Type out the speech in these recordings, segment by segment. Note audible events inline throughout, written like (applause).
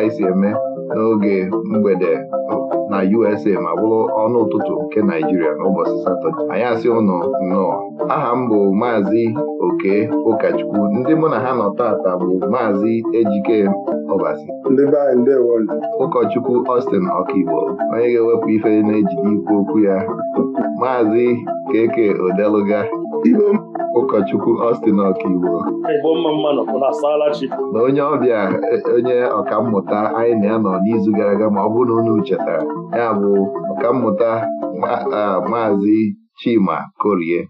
anyị si eme n'oge mgbede na USA ma bụrụ ọnụ ụtụtụ nke Naijiria n'ụbọchị Satọde anyị asị ụnụ nnọọ aha m bụ maazị Oke Ụkachukwu ndị mụ na ha nọ taata bụ maazị Ejike Ọbasi ụkọchukwu Austin Ọkigbo onye ga-ewepụ ife na-ejide ikwu okwu ya maazị Keke Odeluga ụkọchukwu Austin Ọkaiwo na onye ọbịa e, onye ọkammụta anyị na ya n'izu gara aga ma ọ bụrụ na unu chetara ya bụ ọkammụta maazị Chima Korie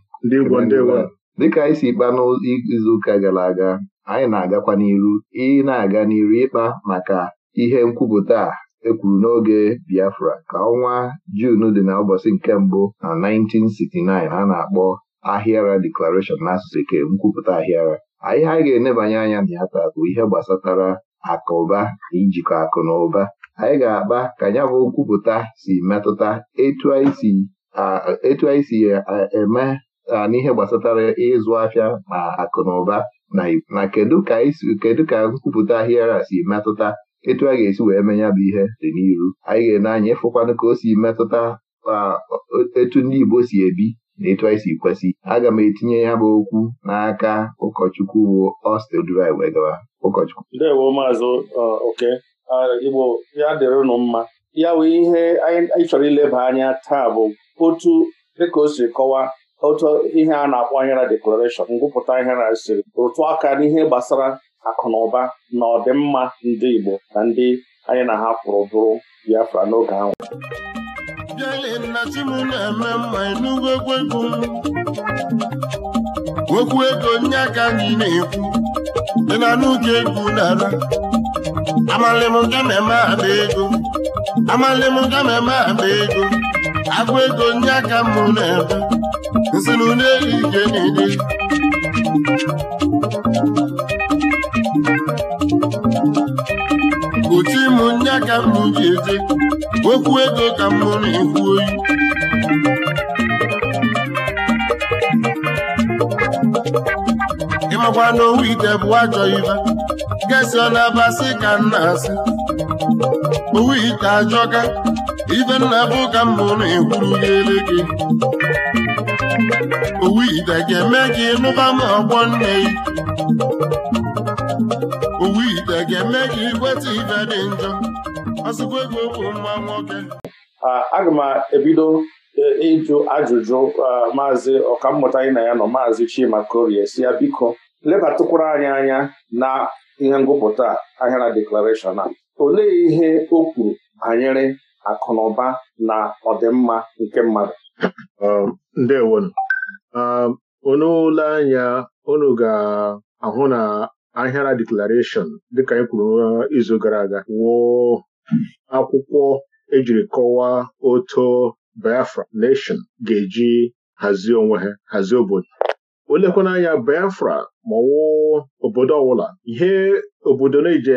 dịka anyị si kpa n'izuụka gara aga anyị na-agakwa n'iru ị na-aga n'iru ịkpa maka ihe nkwupụta a ekwuru n'oge Biafra ka ọnwa Jun dị na ụbọchị nke mbụ na 1969 a na-akpọ ahịara deklarashọn n'asụsụ eke nkwupụta ahịara anyị anyị ga-enebanye anya na ya taa bụ ihe gbasatara akụba na ijikọ akụ na ụba anyị ga-akpa ka ya bụ nkwupụta si metụta etu anyị si eme n'ihe gbasatara ịzụ afịa na akụ na ụba na kedu ka kedu ka nkwupụta ahịara si metụta etu a ga-esi wee menya bụ ihe dị n'iru anyị ga-ene anya ịfụkwanụ ka o si metụta etu ndị Igbo si ebi na etu anyị si kwesị aga m etinye ya bụ okwu n'aka ụkọchukwu bụ Ọstedrai wee gawa ụkọchukwu ndewo maazị oke igbo ya dịrị mma ya wee ihe anyị chọrọ ileba anya taa bụ otu dịka o si kọwaa otu ihe a na-akpọ ahịara deklarashọn ngwụpụta na siri rụtụ aka n'ihe gbasara akụ na ụba na ọdịmma ndị igbo na ndị anyị na ha kwụrụ bụrụ biafra n'oge ahụ abịaghị chi m na-eme mma enugwu egwu m okwu ego nye aka na-ekwu dị na n'oge egwu nara m ga ada ego amalị m ada agụ ego nye aka m na eme nsị na ike anya ka m ji eze okwu ego ka m mụrụ ekwu oyi ịmakwa n'owu ite bụ ajọ ibe gesi na-abasị ka m na-asị owu ite ajọka ife nna bụ ka m mụrụ ekwuru gele gị owu ite ga-eme ka ịnụba m ọgbọ nne gị owu ite ga-eme ka ikweta ibe dị njọ azụkwa e aga m ebido e, ịjụ ajụjụ maazị ọkammụta anyị na ya nọ maazị Chima Korie si ya biko lebatụkwara anyị anya na ihe ngụpụta ahịara deklarashọn a olee ihe o kwuru banyere akụnụba na ọdịmma nke mmadụ um, ndewo unu ụlọ um, anya unu ga-ahụ na ahịara deklarashọn dịka anyị kwuru izu gara aga akwụkwọ ejiri kọwaa oto Biafra nation ga-eji hazie onwe ha hazie obodo olekwana anya Biafra ma ọwụ obodo ọwụla, ihe obodo na-eji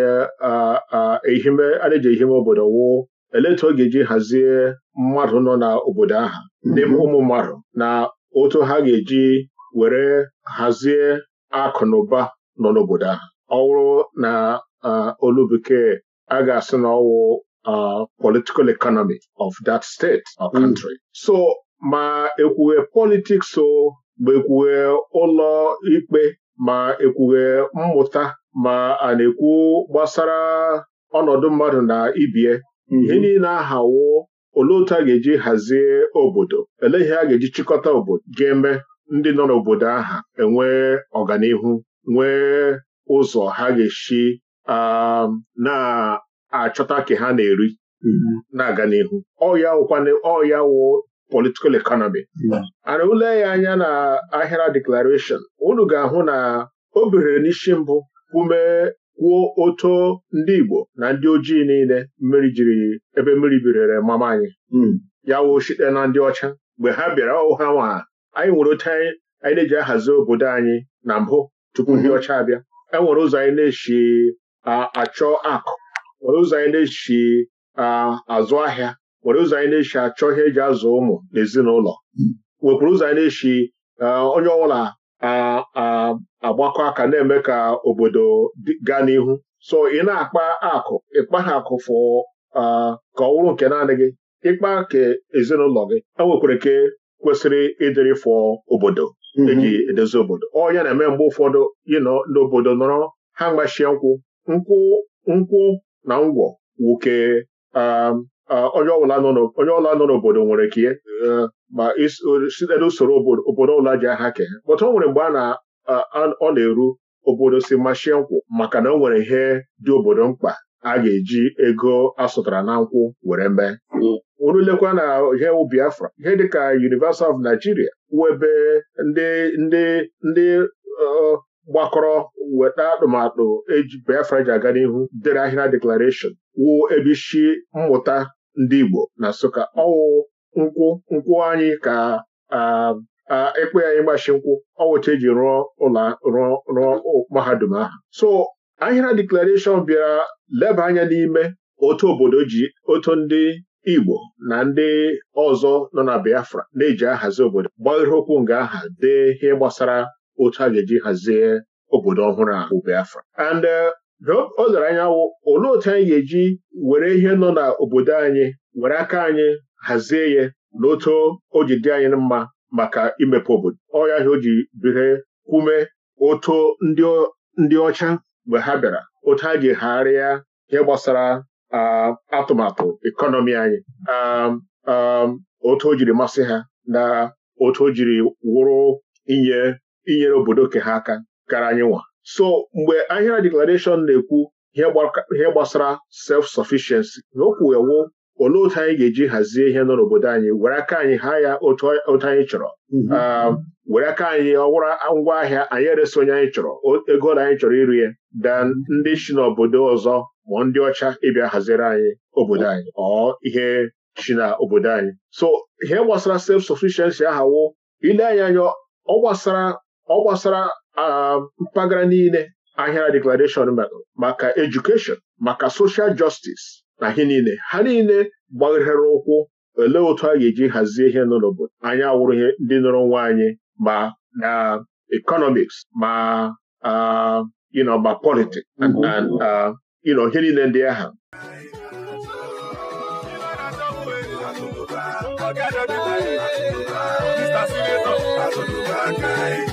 ehime obodo wụọ eleta ọ ga-eji hazie mmadụ nọ n'obodo aha, mhm. ndị ụmụ mmadụ na otu ha ga-eji were hazie akụ na ụba nọ n'obodo aha, ọ wụrụ na olu a ga-asị na ọwụ political economy of that state or mm. country. so ma ekwughe politics o ma ekwughe ụlọ ikpe ma ekwughe mmụta ma a na-ekwu gbasara ọnọdụ mmadụ na ibie mhm. ihe niile ahawo olee otu a ga-eji hazie obodo elee ihe a ga-eji chịkọta obodo ga-eme ndị nọ n'obodo aha enwee ọganihu nwee ụzọ ha ga eshi Um, na-achọta ke ha na-eri mm-hmm. na-aga n'ihu ọya ọya wụ politikal ekonomi mm-hmm. ana ule ya anya na ahịra declaration unu ga-ahụ na o bere n'isi mbụ ume kwuo oto ndị Igbo na ndị ojii niile mmiri jiri ebe mmiri birere mama anyị mm-hmm. ya wụ site na ndị ọcha mgbe ha bịara ọha nwa anyị nwere otu anyị na-eji ahazi obodo anyị na mbụ tupu ndị ọcha abịa enwere ụzọ anyị na-eshi achọ akụ were ụzọ anyị na-echi azụ ahịa were ụzọ anyị na-echi achọ ihe eji azụ ụmụ na ezinụlọ wekwuru ụzọ anyị na eshi onye ọbụla agbakọ aka na-eme ka obodo gaa n'ihu so ị na-akpa akụ ịkpa ha akụ fụ ka ọ wụrụ nke naanị gị ịkpa ka ezinụlọ gị enwekwara ke kwesịrị ịdịrị fụ obodo mhm. eji edozi obodo ọ ya na-eme mgbe ụfọdụ ịnọ n'obodo nọrọ ha mgbachie nkwụ nkwụ na ngwọ nwoke um, onye ọla nọ n'obodo nwere kie um, ma sitere n'usoro obodo ọbụla ji aha ke pọta o nwere mgbe ọ na-eru obodo si machie nkwụ maka na o nwere ihe dị obodo mkpa a ga-eji ego asụtara na nkwụ were mee orulekwa hmm. na ihe Biafra ihe dịka University of Nigeria webe ndị ndị uh, gbakọrọ weta atụmatụ eji Biafra ji aga n'ihu dere ahịrịa deklarashọn wụ ebe isi mmụta ndị Igbo na Nsụka ọwụ nkwụ nkwụ anyị ka ekpe anyị gbashi nkwụ ọwụcha eji rụọ ụlọ rụọ mahadum ahụ so ahịra deklarashọn bịara leba anya n'ime otu obodo ji otu ndị Igbo na ndị ọzọ nọ na Biafra na-eji ahazi obodo gbaghere okwu nga aha dee ihe gbasara otu a ga-eji hazie obodo ọhụrụ a bụ Biafra and uh, o lere anya olee otu anyị ga-eji were ihe nọ n'obodo anyị were aka anyị hazie ya na otu o ji dị anyị mma maka imepe obodo ọya ha o ji bire ume otu ndị ọcha mgbe ha bịara otu ha ji gharịa ihe gbasara atụmatụ ekọnọmi anyị um, um, otu o jiri masị ha na otu o jiri wụrụ inye inyere obodo ke ha aka kara anyị nwa so mgbe ahịra deklarashọn na-ekwu ihe gbasara self-sufficiency na okwu ewu olee otu anyị ga-eji hazie ihe nọ n'obodo anyị were aka anyị ha ya otu anyị chọrọ mm-hmm. ah, were aka anyị ọwụrụ ngwa ahịa anyị eresi onye anyị chọrọ ego na anyị chọrọ iri ya dan mm-hmm. ndị si n'obodo ọzọ ma ndị ọcha ịbịa haziri anyị obodo anyị ọ oh. ihe chi na obodo anyị so ihe gbasara self-sufficiency ahawo ile anyị anya ọ gbasara ọ gbasara mpaghara niile ahịara deklarashọn maka edukeshon maka soshal jọstis na ihe niile ha niile gbaghere ụkwụ olee otu a ga-eji hazie ihe nọ n'obodo anyị awụrụ ihe ndị nọrọ nwa anyị ma na ekọnọmiks ma ịnọ ma politik ịnọ ihe niile ndị ahụ Mr.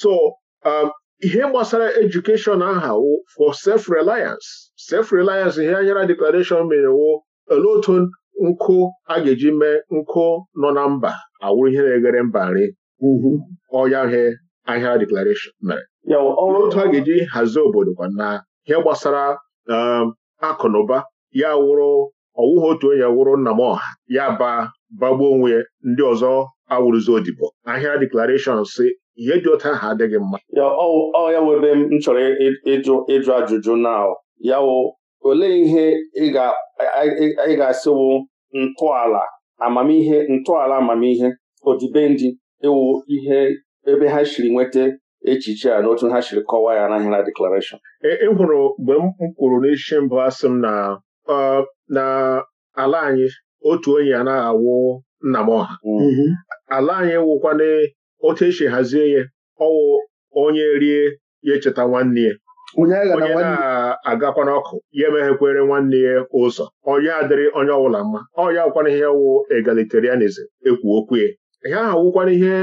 so um, ihe gbasara edukeshọn aha wụ for sef reliance sef reliance ihe anyara deklarashọn mere wụ olee otu nkụ a ga-eji mee nkụ nọ na mba awụrụ ihe na-eghere mba nri mm-hmm. ọya he deklarashọn mere ọrụ otu a ga-eji hazie obodo kwa na ihe gbasara um, akụ na ụba ya wụrụ ọwụghị otu onye wụrụ nna m ọha ya ba bagbuo onwe ndị ọzọ awụrụzi odibo ahịa deklarashọn si ihe dị otu ahụ adịghị mma ọ ya wụ ebe m chọrọ ịjụ ịjụ ajụjụ na ya wụ olee ihe ị ga-asịwụ ntọala amamihe ntọala amamihe odibendị ịwụ ihe ebe ha siri nweta echiche a n'otu ha siri kọwaa ya n'ahịa na deklarashọn ị e, e mgbe m kwuru n'isi mbụ asị m na na ala anyị otu onye na awụ nna m ọha mm-hmm. ala anyị wụkwana otu esi hazie ya ọwụ onye rie ya echeta nwanne ya onye na-agakwa n'ọkụ ya emeghekwere nwanne ya ụzọ onye adịrị onye ọbụla mma ọnya awụkwana ihe wụ egalitarianizm ekwu okwu ya ihe ahụ wụkwana ihe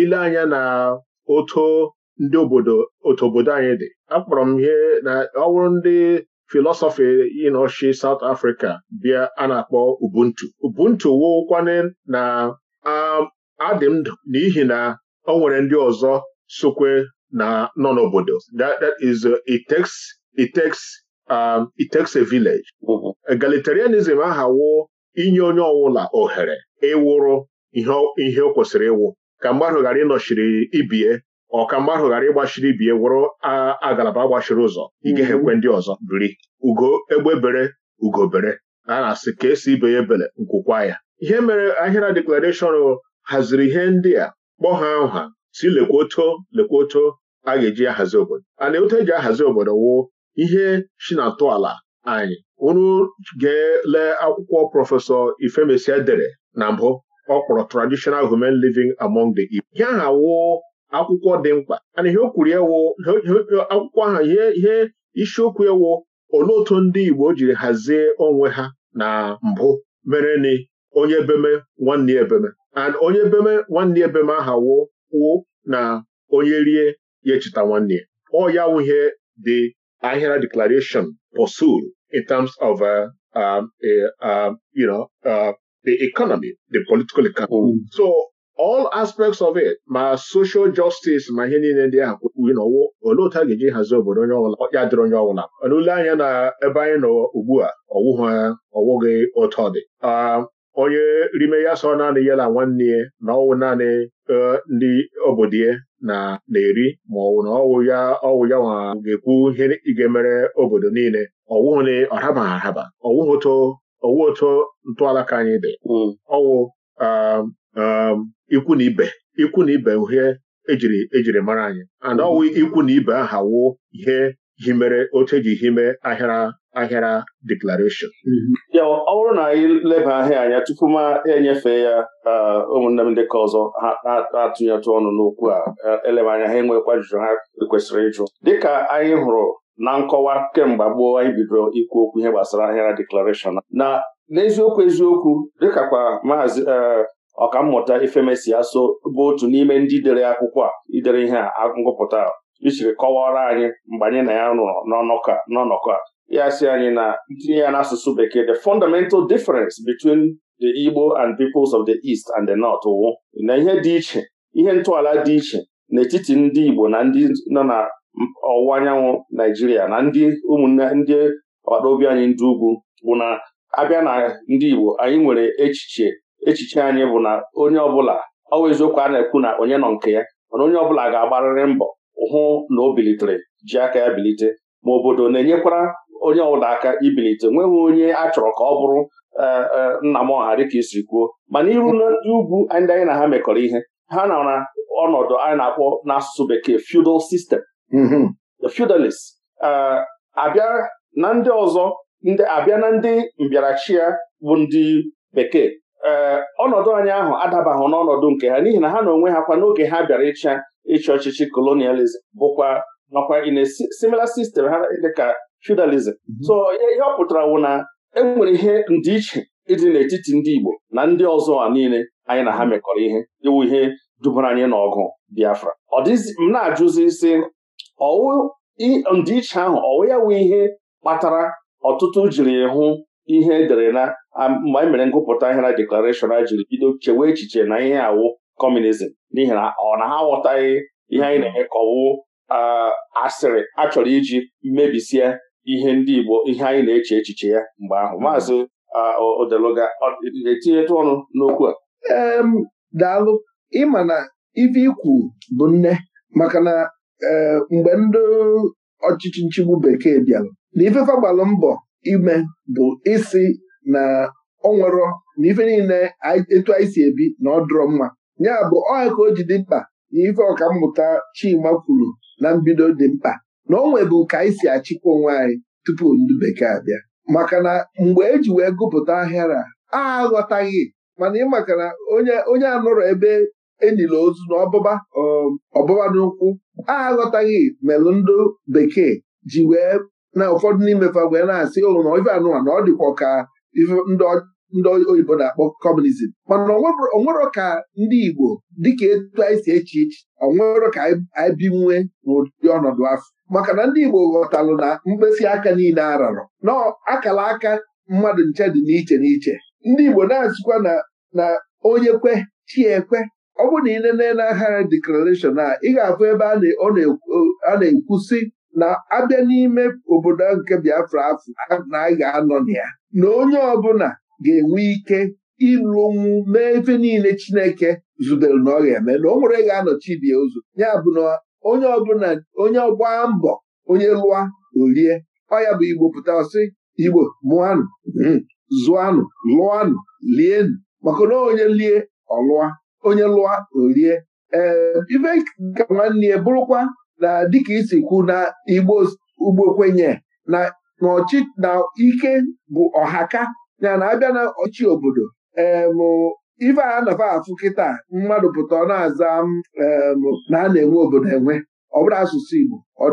ile anya na oto ndị obodo otu obodo anyị dị akpọrọ m ihe na ọwụrụ ndị filọsọfị ịnọchi South Africa bịa a na-akpọ ubuntu ubuntu wụkwana na um, adị m ndụ n'ihi na ọ nwere ndị ọzọ sokwe na nọ n'obodo that is uh, um, it takes a village. egalitarianism ahawo inye onye ọbụla ohere ịwụrụ ihe o kwesịrị ịwụ ka mmadụ ghara ịnọchiri ibie ọ ka mmadụ ghara ịgbachiri ibie wụrụ agalaba gbachiri ụzọ igehekwe mm-hmm. ndị ọzọ biri ugo egbebere ugobere a na-asị ka esi ibe ya ebele nkwụkwa ya ihe mere ahịra deklarashọn haziri ihe ndị a kpọ ha nha si lekwoto lekwoto a ga-eji ahazi obodo ana otu eji ahazi obodo wụ ihe si na ala anyị unu ga-ele akwụkwọ prọfesọ Ifemesia dere na mbụ ọ kpọrọ Traditional Human Living Among the Igbo ihe aha wụ akwụkwọ dị mkpa ana ihe o kwuru akwụkwọ ahụ ihe isiokwu ewu wụ olee otu ndị Igbo jiri hazie onwe ha na mbụ mere onye ebeme nwanne ya ebeme and onye beme nwanne ebeme beme aha wo kwuo na onye rie ya echeta nwanne ya ọ ya wụhe the Ahira declaration pursued in terms of uh, um, uh, uh, you know, uh, the economy, the political economy. Mm. So all aspects of it ma social justice ma ihe niile ndị ahụ kwuru n'ọwụ olee otu a ga-eji hazie obodo onye ọbụla ya dịrị onye ọbụla n'ule anya na ebe anyị nọ ugbu a ọwụghị otu ọ dị um, onye rime ya sọ naanị e, ya na nwanne ya na ọwụ naanị ndị obodo ya na na-eri ma ọwụ na ọwụ ya ọwụ ya nwa ga-ekwu ihe ga-emere obodo niile ọwụ ole ọraba araba ọwụ oto ọwụ oto ntọala ka anyị dị ọwụ hmm. ikwu na ibe ikwu na ibe uhie ejiri ejiri mara anyị and ọwụ hmm. ikwu na ibe aha wụ ihe himere otu eji hime ahịara ahịara deklarashọn ya ọ bụrụ na anyị leba ahịa anya tupu ma enyefe ya ụmụnne m ndị ọzọ ha atụnyetụ ọnụ n'okwu a eleba anya ha enwekwa ajụjụ ha kwesịrị ịjụ dịka anyị hụrụ na nkọwa kemgbe gboo anyị bidoro ikwu okwu ihe gbasara ahịara deklarashọn na n'eziokwu eziokwu dịkakwa maazị e, ọkammụta ifemesi aso bụ otu n'ime ndị dere akwụkwọ a idere ihe a ngụpụta isiri kọwara anyị mgbe anyị na ya rụrụ n'ọnọkọ a ya si anyị na ntinye ya n'asụsụ bekee the fundamental difference between the Igbo and peoples of the East and the North wụ na ihe dị iche ihe ntọala dị iche n'etiti ndị Igbo na ndị nọ na ọwụwa anyanwụ Naijiria na ndị ụmụnne ndị agbataobi anyị ndị ugwu bụ na abịa na ndị Igbo anyị nwere echiche echiche anyị bụ na onye ọbụla ọ bụ eziokwu a na-ekwu na onye nọ nke ya mana onye ọbụla ga-agbarịrị mbọ hụ na o bilitere ji aka ya bilite ma obodo na-enyekwara onye ọbụla aka ibilite nweghị onye a chọrọ ka ọ bụrụ e, e, nna m ọha dịka isi kwuo mana iru ndị ugwu ndị anyị na ha mekọrọ ihe ha nọ na ọnọdụ anyị na-akpọ n'asụsụ bekee feudal system mm-hmm. the feudalist e, abịa na ndị ọzọ abịa na ndị mbịarachi ya bụ ndị bekee Eh, ọnọdụ anyị ahụ adabaghị n'ọnọdụ nke ha n'ihi na ha na onwe ha kwa n'oge ha bịara ịcha ịchị ọchịchị kolonializm bụkwa nakwa in a similar system ha dịka feudalism mhm. so ihe ọ pụtara wụ na enwere ihe ndịiche ịdị n'etiti ndị Igbo na ndị ọzọ a niile anyị na ha mhm. mekọrọ ihe iwu ihe dubara anyị n'ọgụ Biafra ọ m na-ajụzi si ọwụ ndịiche ahụ ọwụ ya wụ ihe kpatara ọtụtụ jiri hụ ihe edere na mgbe anyị mere ngụpụta ihe na deklarashọn a jiri bido chewe echiche na ihe awụ kọmunizm n'ihi na ọ na ha aghọtaghị ihe anyị na-eme ka ọwụ asịrị a chọrọ iji mebisie ihe ndị Igbo ihe anyị na-eche echiche ya mgbe ahụ hmm. maazị Odeluga etinyetụ ọnụ n'okwu a daalụ ịma na ife ikwu bụ nne maka na e, mgbe ndị ọchịchị nchigbu bekee bịara na ifefe gbalụ mbọ ime bụ isi na ọ nwerọ na ife niile etu anyị si ebi na ọ dụrọ mma ya bụ ọha ka o ji dị mkpa na ife mmụta Chima kwuru na mbido dị mkpa na o nwebu ka anyị si achịkwa onwe anyị tupu ndị bekee abịa maka na mgbe eji wee gụpụta ahịara a aghọtaghị mana ị maka na onye anọrọ ebe enyila ozu na ọbụba um, ọbụba n'ụkwụ a aghọtaghị melụ ndị bekee ji wee na ụfọdụ n'imefa wee na-asị ụlụ oh, na ife anụwa na ọ dịkwa ka ife ndị oyibo na-akpọ kọmunizm mana onwero ka ndị Igbo dịka etu anyị si eche iche onwero ka anyị binwe n'ụdị ọnọdụ afọ maka na ndị Igbo ghọtalụ na mkpịsị aka niile ararọ na akala aka mmadụ nche dị n'iche n'iche ndị Igbo na-asịkwa na onye kwe chiekwe ọ bụrụ na ị nene n'agha deklarashọn a ị ga-afụ ebe a na-ekwu sị na abịa n'ime obodo nke Biafra afọ na a ga-anọ na ya na onye ọbụla ga-enwe ike ịrụnwu mee efe niile Chineke zubere na ọ ga-eme na o nwere ga-anọchi bie ụzọ ya bụ na onye ọbụla onye ọgba mbọ onye lụa orie ọya ya bụ Igbo pụta ọsị Igbo mụanụ hmm, zụanụ lụanụ lienụ maka na onye lie ọlụa onye lụa orie ee ife ka nwanne ya bụrụkwa na dịka isi kwu na Igbo ugbo kwenye na na ike bụ ọhaka ya na abịa na ọchị obodo ife a nafa afụ kịta mmadụ pụta ọ na-aza na a na-enwe obodo enwe ọ bụrụ asụsụ Igbo ọ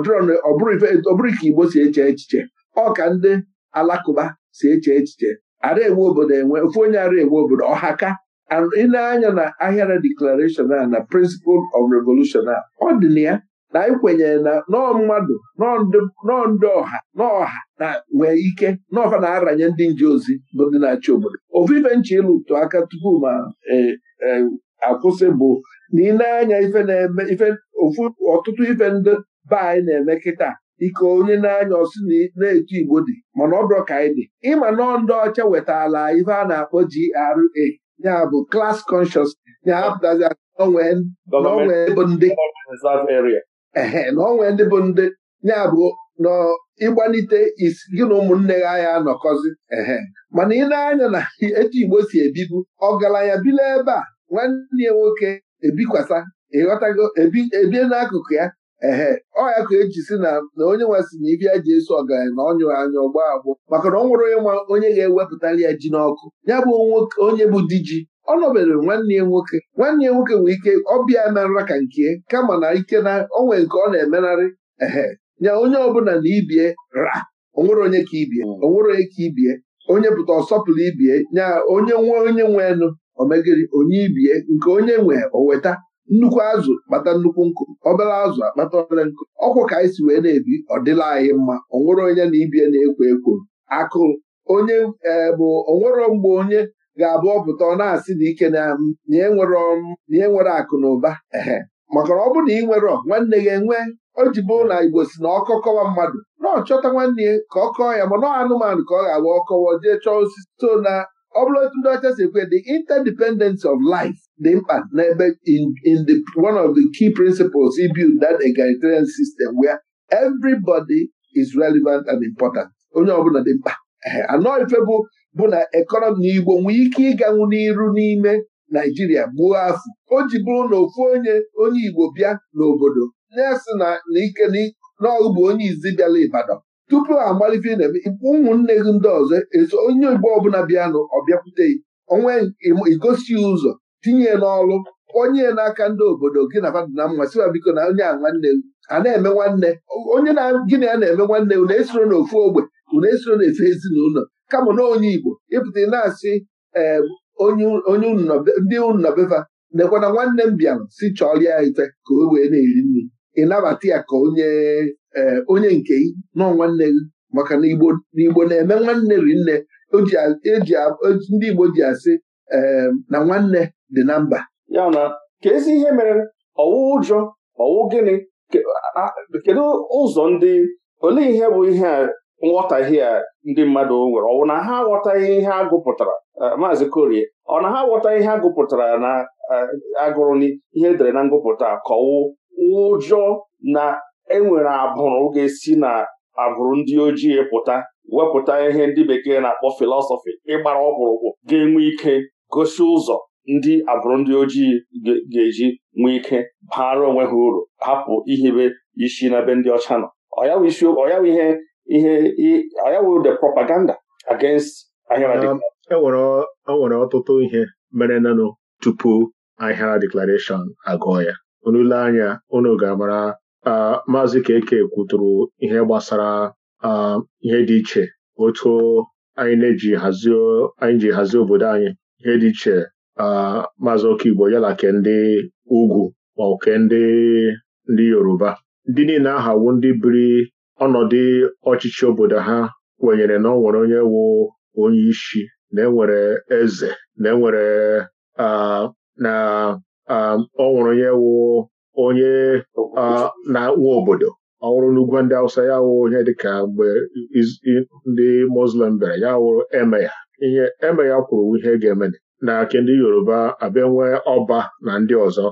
bụrụ ka Igbo si eche echiche ọ ka ndị alakụba si eche echiche ara enwe obodo enwe ofu onye ara enwe obodo ọhaka ị na-anya na ahịara declaration a na principle of revolution a ọ dị na ya na anyị kwenyere na nọọ mmadụ nọọ ndị ọha n'ọha na nwee ike n'ọfa na-aranye ndị nje ozi bụ ndị na-achị obodo ofufe nche aka tupu ma akwụsị bụ na ị na-anya ife na-eme ife ofu ọtụtụ ife ndị be anyị na-eme kịta ike onye na-anya ọsị na-etu igbo dị mana ọ bụrụ ka anyị dị ịma nọọ ndị ọcha wetala ife a na-akpọ GRA ya bụ class conscious ya hapụtazi aka n'onwe ndị ehe na onwe ndị bụ ndị ya bụ n'ịgbalite isi gị na ụmụnne gị anya anọkọzi ehe mana ị na-anya na etu Igbo si ebibu ya bile ebe a nwanne ya nwoke ebikwasa ịghọtago ebie n'akụkụ ya ehe ọya ka eji si na na onye sị na ibi ji eso ọgaranya na ọnyụ anya ọgba agbụ maka na ọ nwụrụ nwa onye ga ewepụtara ya ji n'ọkụ ya bụ onye bụ di ji ọ nọbere nwanne ya nwoke nwanne ya nwoke nwee ike ọbịa merara ka nke kama na ike na onwe nke ọ na-emenarị ehe nya onye ọbụla na ibie ra onwere onye ka ibie onwere onye ka ibie onye pụta ọsọpụrụ ibie nya onye nwe onye nwe nụ omegiri onye ibie nke onye nwe oweta nnukwu azụ kpata nnukwu nkụ obere azụ akpata obere nkụ ọkwụ ka anyị si wee na-ebi ọ dịla anyị mma onwere onye na ibie na-ekwo ekwo akụ onye e, bụ onwere mgbe onye ga-abụ ọpụta ọ na-asị na ike na nye e nwere akụ na ụba ehe maka na ọ bụrụ na ị nwere nwanne gị enwe o ji bụ na Igbo si na ọkọ kọwa mmadụ na ọ chọta nwanne ya ka ọ kọọ ya ma ọ anụmanụ ka ọ ga-agba ọkọwa jee chọọ osisi so na ọ bụrụ otu ndị ọcha si ekwe the interdependence of life dị mkpa n'ebe in the one of the key principles he built that egalitarian system where everybody is relevant and important onye ọbụla dị mkpa anọ ife bụ bụ na ekọnọmi na Igbo nwee ike ịganwu n'iru n'ime Naijiria gbuo afọ o ji bụrụ na ofu onye onye Igbo bịa n'obodo na-asị na ike n'ọgụ bụ onye izi bịala Ibadan tupu ha amalite na ụmụnne gị ndị ọzọ eso onye Igbo ọbụla bịanụ ọ bịakwute onwe igosi ụzọ tinye n'ọrụ onye n'aka ndị obodo gị na fadịna mma siwa biko na onye a nwanne a na-eme nwanne onye na gịnị a na-eme nwanne unu esoro n'ofu ogbe unu esoro n'efe ezinụlọ kama na onye Igbo ịpụta na-asị ee onye ndị unu na nekwana nwanne m bịara si chọrọ ya ife ka o wee na-eri nri ịnabata ya ka onye ee eh, onye nke gị nọ nwanne gị maka na igbo n'igbo na-eme nwanne rinne e ndị igbo ji asị eh, na nwanne dị na mba ya na ka ezi ihe mere ọwụ ụjọ ọwụ gịnị kedu ụzọ ndị olee ihe bụ ihe a nghọtahie a ndị mmadụ nwere ọwụ na ha aghọtaghị ihe a gụpụtara eh, maazị korie ọ na ha aghọtaghị ihe a gụpụtara na agụrụ n'ihe edere na ngụpụta ka ọwụ ụjọ na enwere abụrụ ga-esi na abụrụ ndị ojii pụta wepụta ihe ndị bekee na-akpọ filọsọfị ịgbara ọkpụrụkpụ ga-enwe ike gosi ụzọ ndị abụrụ ndị ojii ga-eji nwee ike baara onwe ha uru hapụ ihibe isi n'ebe ndị ọcha nọ ọyawụ the propaganda against enwere e e ọtụtụ ihe mere nanụ tupu ahịara deklaration agụọ ya unu ile anya unu ga-amara maazị Keke kwuturu ihe gbasara ihe dị iche otu anyị na-eji ji hazie obodo anyị ihe dị iche maazị Okigbo ya ke ndị ugwu ma ndị ndị Yoruba ndị niile ahawo ndị biri ọnọdụ ọchịchị obodo ha kwenyere na ọ nwere onye wu onye isi na enwere eze na enwere na ọ nwere onye wu onye na-akpụ obodo ọ n'ugwu ndị awụsa ya wụ onye dịka mgbe ndị Muslim bere ya wụrụ eme ya ihe eme ya kwuru ihe ga-eme na nke ndị Yoruba abịa nwee ọba na ndị ọzọ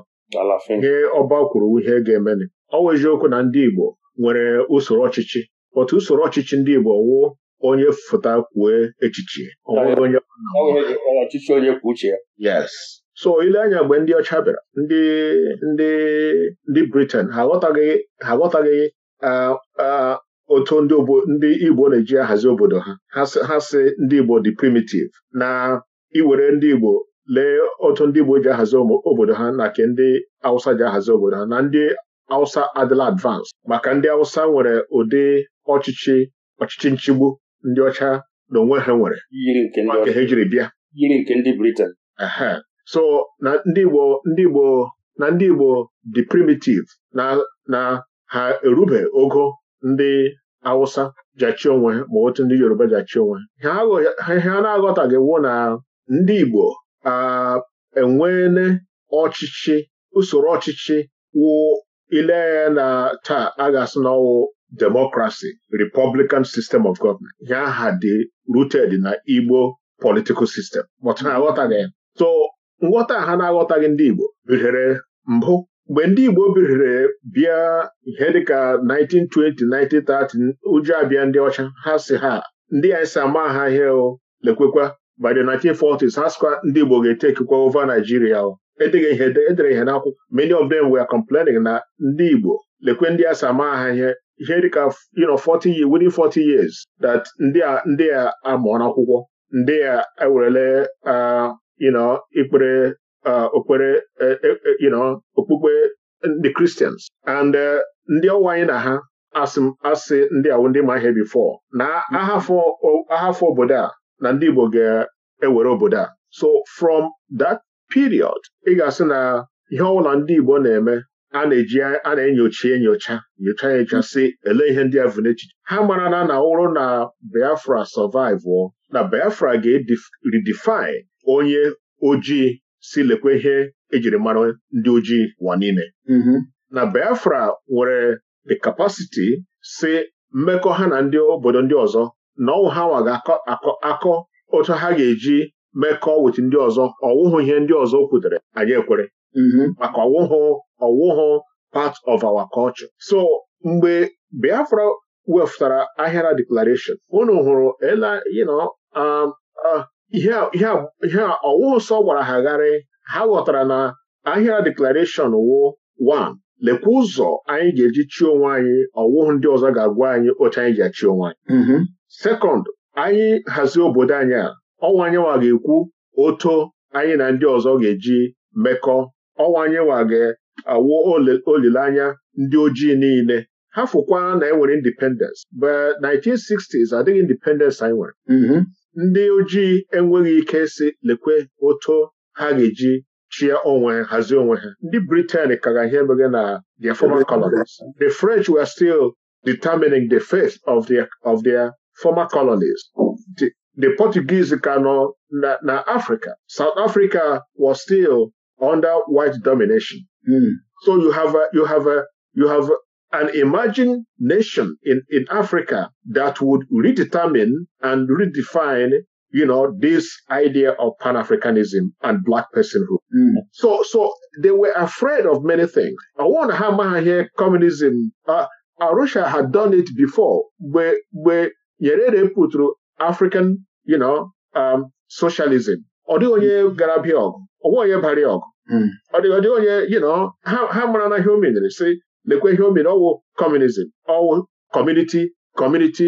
ihe ọba kwuru ihe ga-eme ọ wụ okwu na ndị Igbo nwere usoro ọchịchị otu usoro ọchịchị ndị Igbo wụ onye fụta kwue echiche onye kwuo uche ya so ile anya mgbe ndị ọcha bịara ndị ndị ndị Britain ha aghọtaghị ha otu ndị Igbo na-eji ahazi obodo ha ha si ndị Igbo dị primitive na iwere ndị Igbo lee otu ndị Igbo ji ahazi obodo ha na ke ndị Hausa ji ahazi obodo ha na ndị Hausa adịla advance maka ndị Hausa nwere ụdị ọchịchị nchigbu ndị ọcha na onwe ha nwere maka ha jiri bịa yiri nke ndị Britain so na ndị Igbo ndị Igbo na ndị Igbo dị primitive na na ha erube ogo ndị Awụsa jachi onwe ma otu ndị Yoruba jachi onwe ihe a na-aghọtaghị na ndị Igbo enweele ọchịchị usoro ọchịchị wụ ile na taa a ga-asị na ọwụ democracy republican system of government ihe aha dị rooted na Igbo political system aghọtaghị so nghọta ha na-aghọtaghị ndị Igbo bihere mbụ mgbe ndị Igbo bihere bịa ihe dịka 1920 1930 ụjọ abịa ndị ọcha ha si ha ndị anyị si ma ha ihe lekwekwa by the 1940s ha sịkwa ndị Igbo ga-etekikwa ova Naijiria edeghị ihe edere ihe n'akwụkwọ many of them were complaining na ndị Igbo lekwe ndị a sama ha ihe ihe dịka you know 40 years within 40 years that ndị a amụọ n'akwụkwọ ndị a ewerele uh, you know ikpere okpere okpukpe the Christians and uh, ndị ọwa anyị na ha asị e, ndị awụ ndị ma ihe bifọ na ahafọ mm-hmm. obodo a na ndị Igbo ga-ewere obodo a so from that period ị ga-asị na ihe ọbụla ndị Igbo na-eme a na-eji a na-enyocha enyocha nyocha enyocha mm-hmm. si ele ihe ndị ahụ vụ n'echiche ha mara na na na Biafra survive na Biafra ga-redefine onye ojii si lekwe ihe ejiri mara ndị ojii ụwa niile mm-hmm. na Biafra nwere the capacity si mmekọ ha na ndị obodo ndị ọzọ na ọnwụ ha nwa akọ otu ha ga-eji mekọ wetu ndị ọzọ ọwụhụ ihe ndị ọzọ kwutere anyị ekwere mm-hmm. maka ọwụhụ ọwụhụ part of our culture so mgbe Biafra wefụtara ahịara declaration unu hụrụ ele ihe ọwụ sọ gwara ha gharị ha ghọtara na ahịa deklarashọn wụ 1 lekwa ụzọ anyị ga-eji chi onwe anyị ọwụhụ ndị ọzọ ga-agwa anyị otu anyị ji achi onwe anyị mm-hmm. sekọnd anyị hazie obodo anyị a ọnwa anyị ga-ekwu oto anyị na ndị ọzọ ga-eji mekọ ọnwa anyị ga-awụ olileanya ndị ojii niile ha fụkwa na enwere independence but 1960s adịghị independence anyị nwere mm-hmm. ndị ojii enweghị ike si lekwe otu ha ga-eji chie onwe ha hazie onwe ha ndị Britain kara ihe mere na their former colonies the French were still determining the fate of their of their former colonies the, the Portuguese ka nọ na, na Africa South Africa was still under white domination mm. so you have a, you have a, you have an emerging nation in, in Africa that would redetermine and redefine, you know, this idea of Pan-Africanism and black personhood. Mm. So, so they were afraid of many things. I want to hammer here communism. Uh, Arusha had done it before where, where Nyerere through African, you know, um, socialism. Ọ onye hmm. gara bịa ọgụ, onye bara ọgụ. Hmm. Ọ onye, you know, ha mara na human o si lekwe ihe o mere ọwụ communism ọwụ community community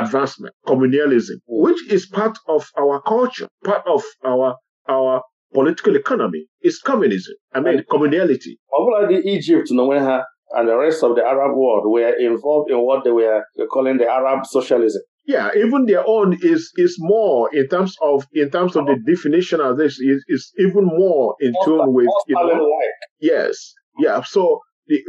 advancement communalism which is part of our culture part of our our political economy is communism i mean communality ọbụla Egypt n'onwe ha and the rest of the Arab world were involved in what they were calling the Arab socialism. Yeah, even their own is is more in terms of in terms of the definition of this is is even more in tune with you know, like. yes, yeah. So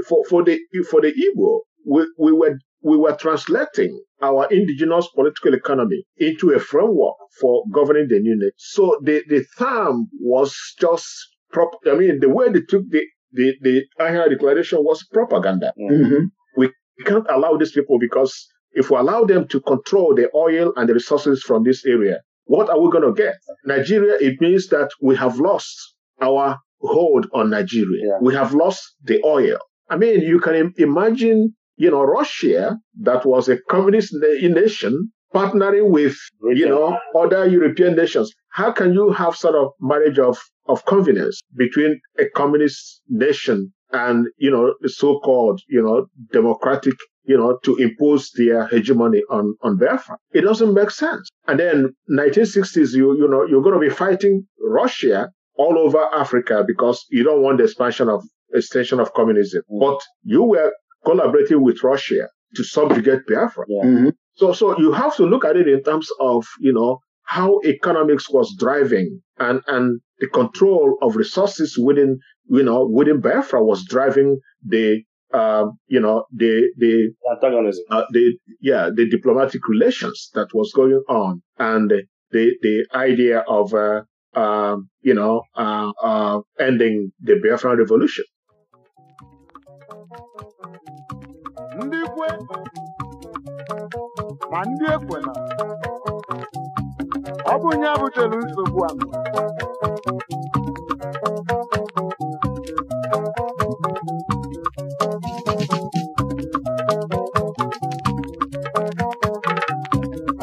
for, for, the, for the Igbo, we, we, were, we were translating our indigenous political economy into a framework for governing the new nation. So the, the term was just, prop- I mean, the way they took the, the, the Declaration was propaganda. mm We can't allow these people because if we allow them to control the oil and the resources from this area, what are we going to get? Nigeria, it means that we have lost our hold on Nigeria. Yeah. We have lost the oil. I mean, you can imagine, you know, Russia, that was a communist nation, partnering with, you know, other European nations. How can you have sort of marriage of, of convenience between a communist nation and, you know, the so-called, you know, democratic you know, to impose their hegemony on, on Biafra. It doesn't make sense. And then 1960s, you, you know, you're going to be fighting Russia all over Africa because you don't want the expansion of extension of communism. Mm-hmm. But you were collaborating with Russia to subjugate Biafra. Yeah. Mm-hmm. So, so you have to look at it in terms of, you know, how economics was driving and, and the control of resources within, you know, within Biafra was driving the, uh, you know, the, the, antagonism, uh, the, yeah, the diplomatic relations that was going on and the, the idea of, uh, um, you know, uh, uh, ending the Biafra revolution. ndị kwe ma ndị ekwela ọ bụ nye butere nsogbu a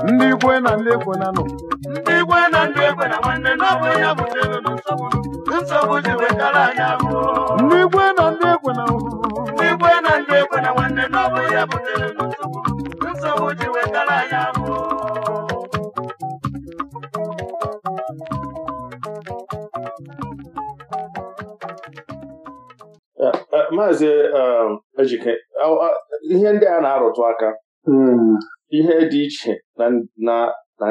ndị ikwe na ndị ekwena nọ ndị ikwe na ndị ekwena nwanne na ọ bụ ya butere nsogbu nsogbu ji wetara anya abụọ na ya butere nsogbu ji wetara ya bụ maazị um, ejike uh, uh, ihe ndị a na-arụtụ aka hmm. ihe dị iche na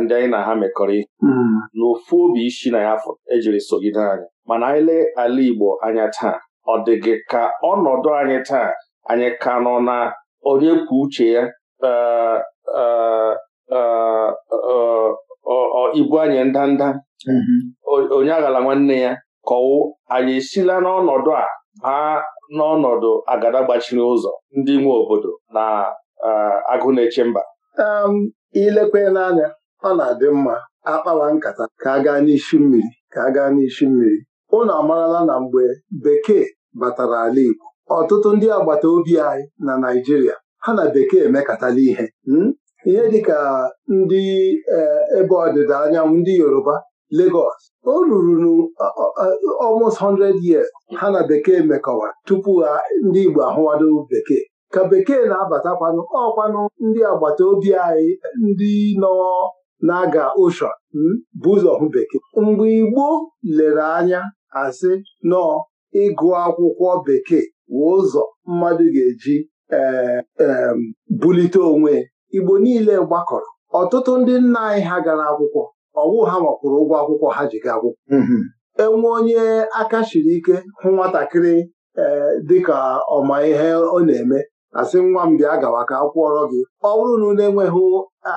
ndị anyị na ha mekọrọ ihe hmm. n'ofu obi isi na ya ejiri sogide anyị mana anyị lee ala Igbo anya taa ọ dị gị ka ọnọdụ anyị taa anyị ka nọ na onye kwuo uche ya e, e, e, ibu anyị ndanda mm-hmm. onye aghala nwanne ya kọwụ anyị esila n'ọnọdụ a ha n'ọnọdụ agada gbachiri ụzọ ndị nwe obodo na agụ na-eche mba um, ilekwela anya ọ na-adị mma akpawa nkata ka a gaa n'isi mmiri ka a gaa n'isi mmiri unu amarala na mgbe bekee batara ala Igbo ọtụtụ ndị agbata obi anyị na Naịjirịa ha na bekee emekatala ihe hmm? ihe dịka ndị eh, ebe ọdịda anyanwụ ndị Yoruba Lagos o ruru almost 100 years ha na bekee mekọwara tupu ndị Igbo ahụwado bekee ka bekee na-abatakwanụ ọkwanụ ndị agbata obi anyị ndị nọ na-aga oshọn hmm? bụ ụzọ hụ bekee mgbe Igbo lere anya asị nọọ ịgụ akwụkwọ bekee wee ụzọ mmadụ ga-eji eh, bulite onwe Igbo niile gbakọrọ ọtụtụ ndị nna anyị ha gara akwụkwọ ọwụ ha makwụrụ ụgwọ akwụkwọ ha ji ga akwụkwọ mm-hmm. enwe onye aka shiri ike hụ nwatakịrị ee eh, dịka ọma ihe ọ na-eme asị nwa m bịa gawa ka akwụọrọ gị ọ bụrụ na unu enweghị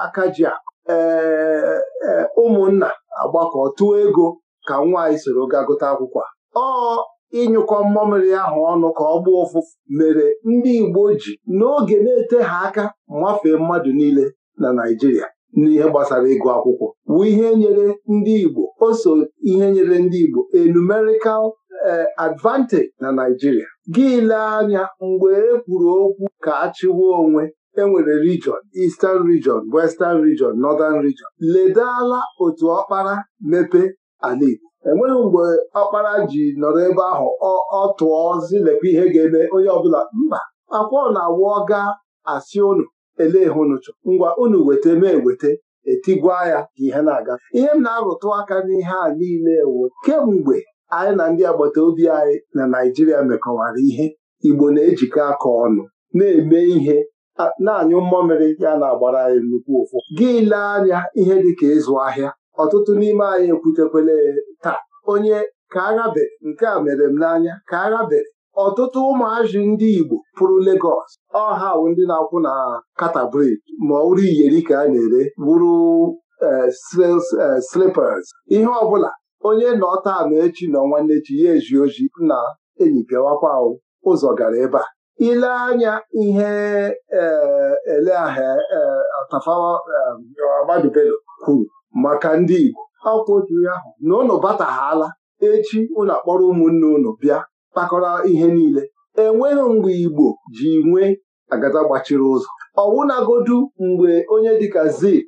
aka ji a ee eh, ụmụnna agbakọ tụọ ego ka nwa anyị soro gaa gụta akwụkwọ ọ ịnyụkọ mmamịrị ahụ ọnụ ka ọ gbaa ụfụfụ mere ndị Igbo ji n'oge na-ete ha aka mafee mmadụ niile na Naijiria n'ihe gbasara ịgụ akwụkwọ wụ ihe nyere ndị Igbo o so ihe nyere ndị Igbo a numerical e, advantage na Naijiria. gị anya mgbe e kwuru okwu ka a chịwa onwe e nwere region Eastern region Western region Northern region ledala otu ọkpara mepe ala Igbo enweghị mgbe ọkpara ji nọrọ ebe ahụ ọ tụọ zilekwa ihe ga-eme onye ọbụla mba akwa ọ na-awụ ọga asị unu ele hụnụchụ ngwa unu weta mee weta etigwa ya ka ihe na-aga ihe m na-arụtụ aka n'ihe a niile ewu kemgbe anyị na ndị agbata obi anyị na Naịjirịa mekọwara ihe Igbo na-ejikọ aka ọnụ na-eme ihe na-anyụ mmamịrị ya na-agbara anyị nnukwu ụfụ gị lee anya ihe dị ka ịzụ ahịa ọtụtụ n'ime anyị ekwutekwele taa onye ka aghabe nke a mere m n'anya ka aghabere ọtụtụ ụmụazị ndị Igbo pụrụ Legọs ọha bụ ndị na-akwụ na katabrid ma ọrụ iyeri ka a na-ere wuru eh, eh, slippers ihe ọbụla onye nọ taa echi nọ nwanne echi ya eji oji na enyi pịawakwa ụzọ gara ebe a ile anya ihe eh, ahịa tafawa Ahmadu kwuru maka ndị Igbo akwụkwọ otu ahụ na ụnụ bataghala echi ụlọ akpọrọ ụmụnne ụnụ bịa kpakọrọ ihe niile enweghị mgbe Igbo ji nwee agada gbachiri ụzọ ọwụnagodu mgbe onye dịka Zik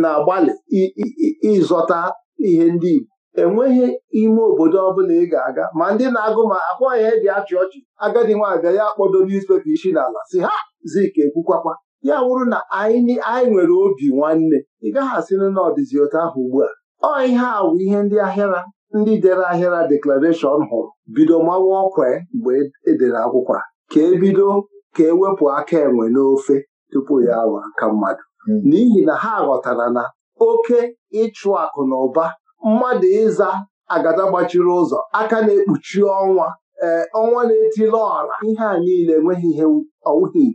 na-agbalị ịzọta ihe ndị Igbo enweghị ime obodo ọbụla ị ga-aga ma ndị na-agụ ma akwa ihe eji achị ọchị agadi nwaabịa ya kpọdo newspaper isi n'ala si ha Zik ekwukwakwa ya wụrụ na anyị nwere obi nwanne ị gaghị asị na otu ahụ ugbu a ọ ihe a wụ ihe ndị ahịara ndị dere ahịara deklarashọn hụrụ bido mawa ọkwa e mgbe edere akwụkwọ ka ebido ka ewepụ aka enwe n'ofe tupu ya awa aka mmadụ hmm. n'ihi na ha ghọtara na oke ịchụ akụ na ụba mmadụ ịza agada gbachiri ụzọ aka na-ekpuchi ọnwa ee eh, ọnwa na-etili ọra ihe a niile enweghị ihe ọwụghị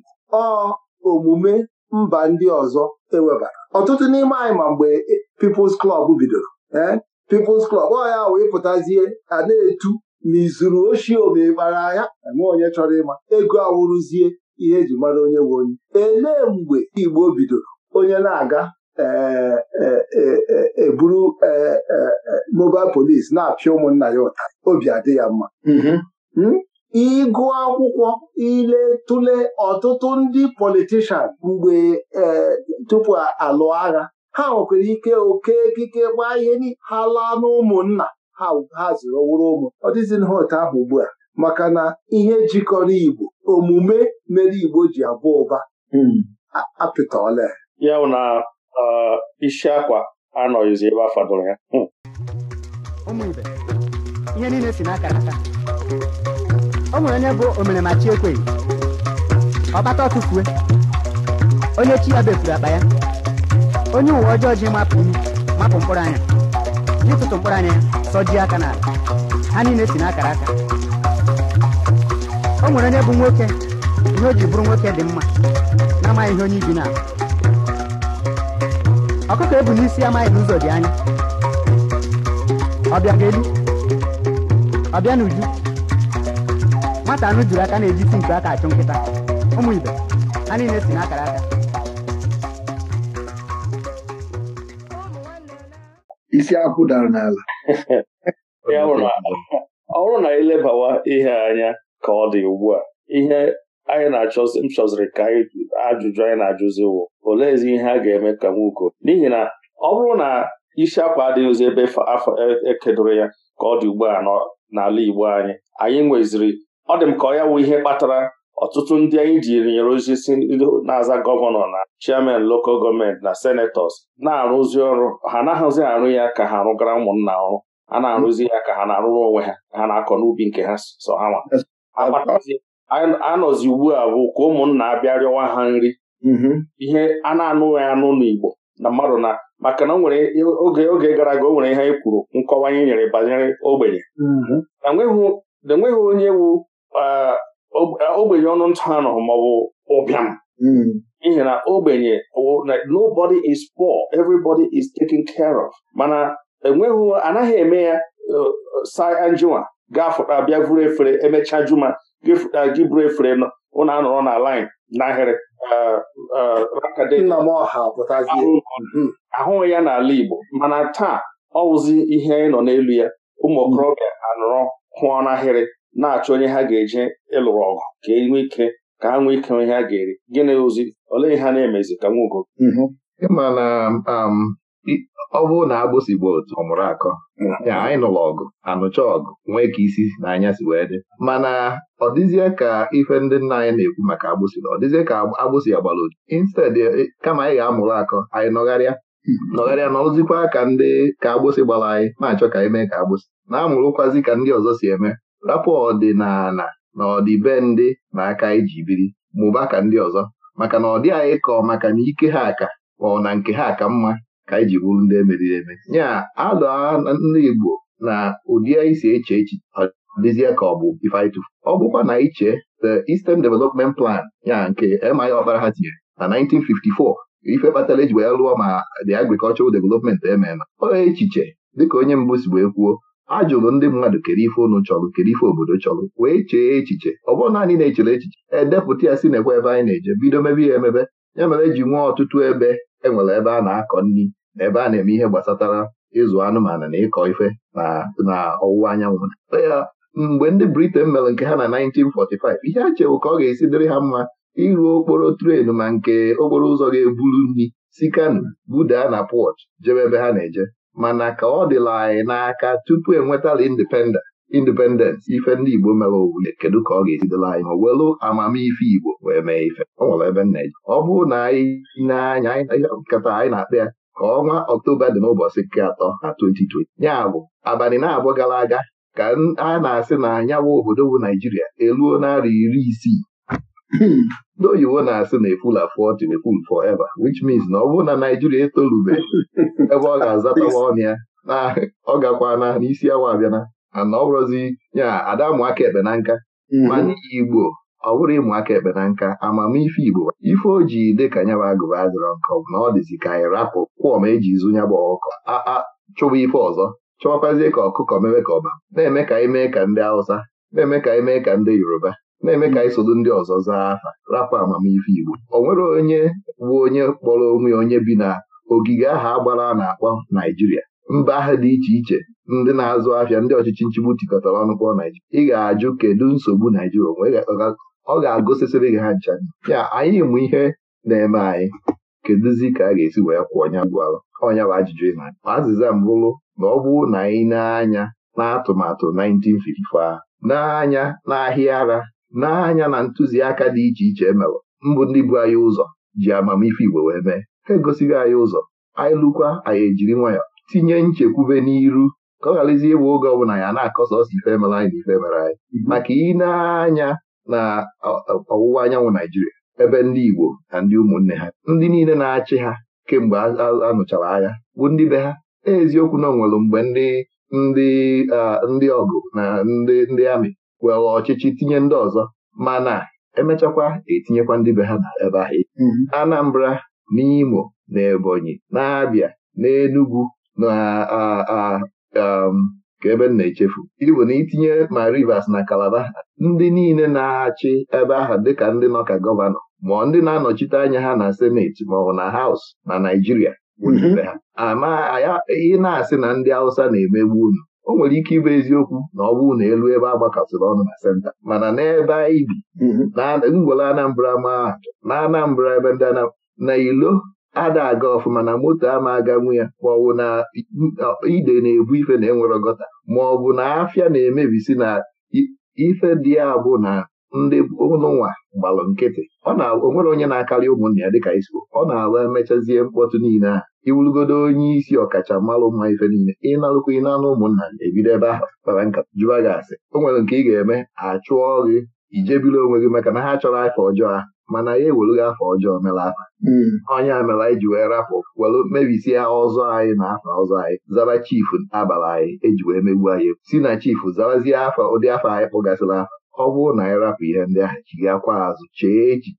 ọ omume mba ndị ọzọ ewebara ọtụtụ n'ime anyị ma mgbe People's Club bidoro ee eh, People's Club ọ ya wee pụtazie a na-etu na izuru oshi omekpara anya enwe onye chọrọ ịma ego awụrụzie ihe eji mara onye nwe onye elee mgbe Igbo bidoro onye na-aga eburu eh, eh, e mobile police na-apịa ụmụnna ya ụta obi adị ya mma mhm. hmm? ịgụ akwụkwọ ile tụle ọtụtụ ndị politishan mgbe e, tupu alụ agha ha nwekwara ike oke ekike gbaa ihe ha laa n'ụmụnna ha ha zụrụ wụrụ ụmụ ọ dịzinha ahụ ugbu a maka na ihe jikọrọ Igbo omume mere Igbo ji abụ ụba hmm. apịtọọla ya na isi akwa anọghịzi ebe a fadoro ya hmm. o nwere onye bụ omere Ekwe. chi ọkpata ọtụfue onye chi ya befuru akpa ya onye uwe ọjọọ ji mapụ mkpụrụ anya n'ịtụtụ mkpụrụ anya ya sọjie aka n'ala ha niile si n'akara aka o nwere onye bụ nwoke ihe o ji bụrụ nwoke dị mma na-amaghị ihe onye ibi na ọkụkọ ebu n'isi amaghị n'ụzọ dị anya ọbịa ga-elu ọbịa n'uju nwata anụ jiri aka na-ejisi nke aka achụ nkịta ụmụ ibe ha niile si n'akara aka isi akwụ dara n'ala (laughs) ọ bụrụ na elebawa ihe anya ka ọ dị ugbu a ihe anyị na-achọzi m chọziri ka ajụjụ anyị na-ajụzi wụ oleezi ihe a ga-eme ka nwoke n'ihi na ọ bụrụ na isi akwa adịghịzi ebe afọ ekedoro e, ya ka ọ dị ugbu a n'ala Igbo anyị anyị nweziri ọ dị m ka ọ ya wụ ihe kpatara ọtụtụ ndị anyị ji nyere ozi si na-aza gọvanọ na chairman lokal gọọmenti na senetọs na-arụzi ọrụ ha anaghịzi arụ ya ka ha arụgara ụmụnna ọrụ a na-arụzi ya ka ha na-arụrụ onwe ha ha na-akọ n'ubi nke ha so ha nwa anọzi ugbu a bụ ka ụmụnna abịa rịọwa ha nri mm-hmm. ihe a na-anụghị anụ n'Igbo na mmadụ na maka na nwere oge oge gara aga o nwere ihe anyị kwuru nkọwa anyị nyere banyere ogbenye mm-hmm. na enweghị onye wu ogbenye ọnụ ntụ anọ maọbụ ụbịam hmm. n'ihi na ogbenye nobody is poor everybody is taken care of mana enweghị anaghị eme ya sai anjụwa gafụta bịa vuru efere emechaa juma gịfụta gị buru efere nọ ụnụ anọrọ na line n'ahịrị ahụghị hmm. ya n'ala Igbo mana taa ọ wụzi ihe anyị nọ n'elu ya ụmụ okorobịa anọrọ hụọ n'ahịrị na-achọ onye ha ga-eje ịlụrụ ọgụ ka e nwee ike ka ha nwee ike ihe ha ga-eri gịnị ozi olee ihe ha na-emezi ka nwugo mm-hmm. na um, ọ bụrụ na agbụsị bụ otu ọmụrụ akọ mm-hmm. ya anyị nụrụ ọgụ anụcha ọgụ nwee ka isi na anya si wee dị mana ọ dịzie ka ife ndị nna anyị na-ekwu maka agbụsị ọ dịzie ka agbụsị ya gbara instead e, kama anyị ga-amụrụ akọ anyị nọgharịa mm-hmm. nọgharịa n'ọzụzikwa ka ndị ka agbụsị gbara anyị na-achọ ka anyị mee ka agbụsị na-amụrụkwazi ka ndị ọzọ si eme rapụ ọdịnala na ọdịbendị na aka iji e biri mụba ka ndị ọzọ maka na ọ dị anyị kọọ maka na ike ha ka ọ na nke ha ka mma ka anyị e ji bụrụ ndị emeriri eme nya alụ ndị Igbo na ụdị anyị si eche echi dịzie ka ọ bụ ife ọ bụkwa na iche the Eastern Development Plan ya nke M.I. Ọkpara ha tinyere na 1954 ife kpatara eji wee lụọ ma the agricultural development ememe ọ echiche dịka onye mbụ si wee kwuo a jụrụ ndị mmadụ kere ife ụnụ chọrọ kere ife obodo chọrọ wee chee echiche ọ bụrụ naanị na-echere echiche edepụta ya si na-ekwe ebe anyị na-eje bido mebe ya emebe ya mere ji nwee ọtụtụ ebe enwere ebe a na-akọ nri na ebe a na-eme ihe gbasatara ịzụ anụmanụ na ịkọ ife na ọwụwa anyanwụ ya mgbe ndị Britain mere nke ha na 1945 ihe a chewo ka ọ ga-esi dịrị ha mma ịrụ okporo tren ma nke okporo ụzọ ga-eburu nri si Kano budaa na pọt jebe ebe ha na-eje mana ka ọ dịla anyị n'aka tupu enwetala independence ife ndị Igbo mere owule kedu ka ọ ga-esidela anyị ma welu amamife Igbo wee mee ife ọ nwere ebe nna ji ọ bụrụ na anyị na-anya nkata anyị na-akpa ya ka ọnwa Ọktoba dị n'ụbọchị nke atọ na 2020 ya bụ abalị na-abụ gara aga ka a na-asị na anyanwụ obodo bụ Naijiria eluo narị iri isii ndị na-asị na efulafu ọchị na-eful forever wich mins na ọ bụrụ na Naijiria etolubeghị (laughs) ebe ọ ga-azatawa ọnụ ya na (laughs) ọ gakwana n'isi awa abịana ana ọ bụrụzi ya ada ụmụaka ekpe na nka mm-hmm. mana Igbo ọ bụrụ ụmụaka ekpe na nka amamife Igbo ife o ji dị ka nyaba agụba adịrọ nkọ bụ na ọ dịzi ka anyị rapụ kwụọ ma eji zụ nyaba ọkụkọ chụba ife ọzọ chụwakwazie ka ọkụkọ mewe ka ọba na-eme ka anyị mee ka ndị Hausa na-eme ka anyị mee ka ndị Yoruba na-eme ka anyị ndị ọzọ zaa aha rapụ amamife Igbo ọ nwere onye bụ onye kpọrọ onwe onye bi na ogige aha agbara na-akpọ Naijiria mba ahụ dị iche iche ndị na-azụ ahịa ndị ọchịchị nchigbu tikọtara ọnụ kpọọ Naijiria ị ga-ajụ kedu nsogbu Naijiria onwe ọ ga-agụsịsịrị gị ha ncha ya anyị mụ ihe na-eme anyị kedụzi ka a ga-esi wee kwụọ ọnya gwalụ ọnya bụ ajụjụ ịna azịza mbụrụ na ọ bụrụ na anyị na n'atụmatụ 1954 n'anya n'ahịa ara n'anya na ntụziaka dị iche iche emere mbụ ndị bụ anyị ụzọ ji amamife Igbo wee mee ha egosighị anyị ụzọ anyị lụkwa anyị ejiri nwayọ tinye nchekwube n'iru ka ọ gharazie ịbụ oge ọbụla ya na-akọsa ọsọ ife mere anyị na ife mere anyị mhm. maka ị na-anya na ọwụwa anyanwụ Naijiria ebe ndị Igbo na ndị ụmụnne ha ndị niile na-achị ha kemgbe anụchara agha bụ ndị be ha eziokwu na o mgbe mgbe ndị ndị ọgụ na ndị ndị amị were ọchịchị tinye ndị ọzọ mana emechakwa etinyekwa ndị be ha na ebe ahụ mm-hmm. Anambra Imo na Ebonyi na-abịa n'Enugu na um, ka ebe m na-echefu Ibu na itinye ma Rivers na Calabar ndị niile na-achị ebe ahụ dịka ndị nọ ka gọvanọ ma ndị na-anọchite anya ha na seneti ma ọ na haus na Naijiria mm-hmm. ha. ama ị na-asị na ndị Hausa na-emegbu unu o nwere ike ịbụ eziokwu na ọ bụrụ na elu ebe a agbakasịrị ọnụ na senta mana n'ebe anyị bi mhm. ngwere Anambra ma na Anambra ebe ndị na ilo ada aga ọfụma na moto ama aga nwu ya ma ọ bụ na ide na-ebu ife na enwere gọta ma ọ bụ na afịa na-emebisi na ife dị abụ na ndị ụlọnwa gbalụ nkịtị ọ na-onwere onye na-akarị ụmụnna ya dịka isiko ọ na-awa emechazie mkpọtụ niile ahụ iwulugodo onye isi ọkachamara mma ife niile ịnarụkwa ị na-anụ ụmụnna ebido ebe ahụ kpara nka jụba gị asị o nwere nke ị ga-eme achụọ gị ijebiri onwe gị maka na ha chọrọ afa ọjọọ ha mana ya ewere gị afa ọjọọ mere afa hmm. onye a mere anyị ji wee rapụ were mebisie ọzọ anyị na afa ọzọ anyị zara chifu abara anyị eji wee megbu anyị si na chifu zarazie afa ụdị afa anyị kpụgasịrị afa ọ bụrụ na anyị rapụ ihe ndị ahụ akwa azụ chee echi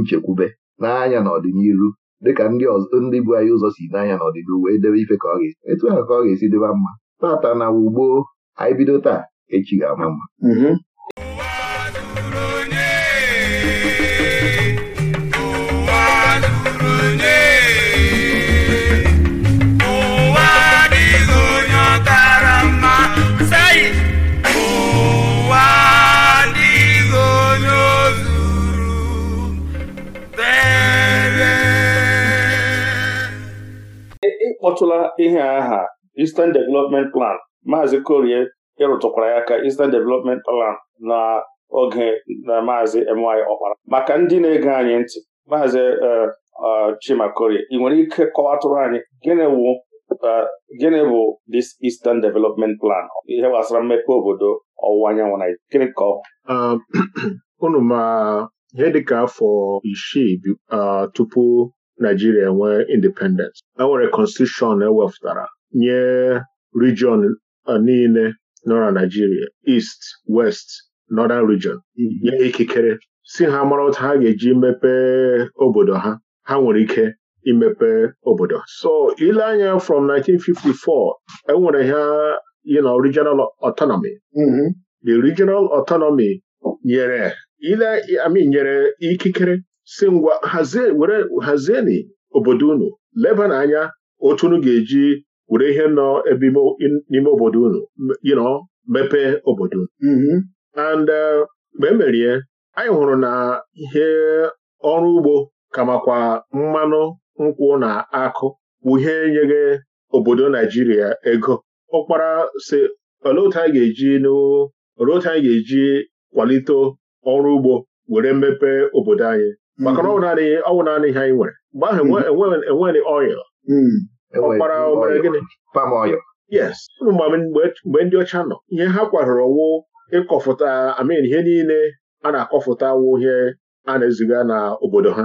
nchekwube n'anya n'ọdịnihu dịka ndị ndị bu anyị ụzọ si n'anya n'ọdịdị wee debe ife ka ọ ga-esi etu ahụ ka ọ ga-esi dịba mma tata na ugbo anyị bido taa echi ga-ama mma mhm. akpọtụla ihe aha Eastern Development Plan Maazị Korie ịrụtụkwara ya ka Eastern Development Plan na oge na Maazị MY Ọkpara maka ndị na-ege anyị ntị Maazị e, e, Chima Korie ị nwere ike kọwatụrụ anyị e, gịnị bụ this Eastern Development Plan ihe gbasara mmepe obodo ọwụwa anyanwụ na gịnị ka ọ (clears throat) afọ isii tupu Naijiria nwee independent, enwere constitution ewepụtara nye region e, niile nọ na Naijiria East, West, Northern region mm-hmm. nye ikikere si ha mara otu ha ga-eji mepee obodo ha ha nwere ike imepe obodo so ile anya from 1954 enwere ha you know, regional autonomy mm-hmm. the regional autonomy nyere ile I mean nyere ikikere si ngwa hazie were obodo unu leba n'anya otu unu ga-eji were ihe nọ ebe n'ime obodo unu yinọ mepee obodo unu mm-hmm. and uh, mgbe emerie anyị hụrụ na ihe ọrụ ugbo kamakwa mmanụ nkwụ na akụ bụ ihe nyere obodo Naijiria ego ụkpara si olee anyị ga-eji olee ga-eji kwalite ọrụ ugbo were mepee obodo anyị maka mm. na ọ ọwụ naanị ihe anyị nwere mgbe ahụ mm. enweghị oil mm. ọkpara gịnị yes mgbe ndị ọcha nọ ihe ha kwadoro wụ ịkọfụta amin ihe niile a na-akọfụta wụ ihe a na-eziga na obodo ha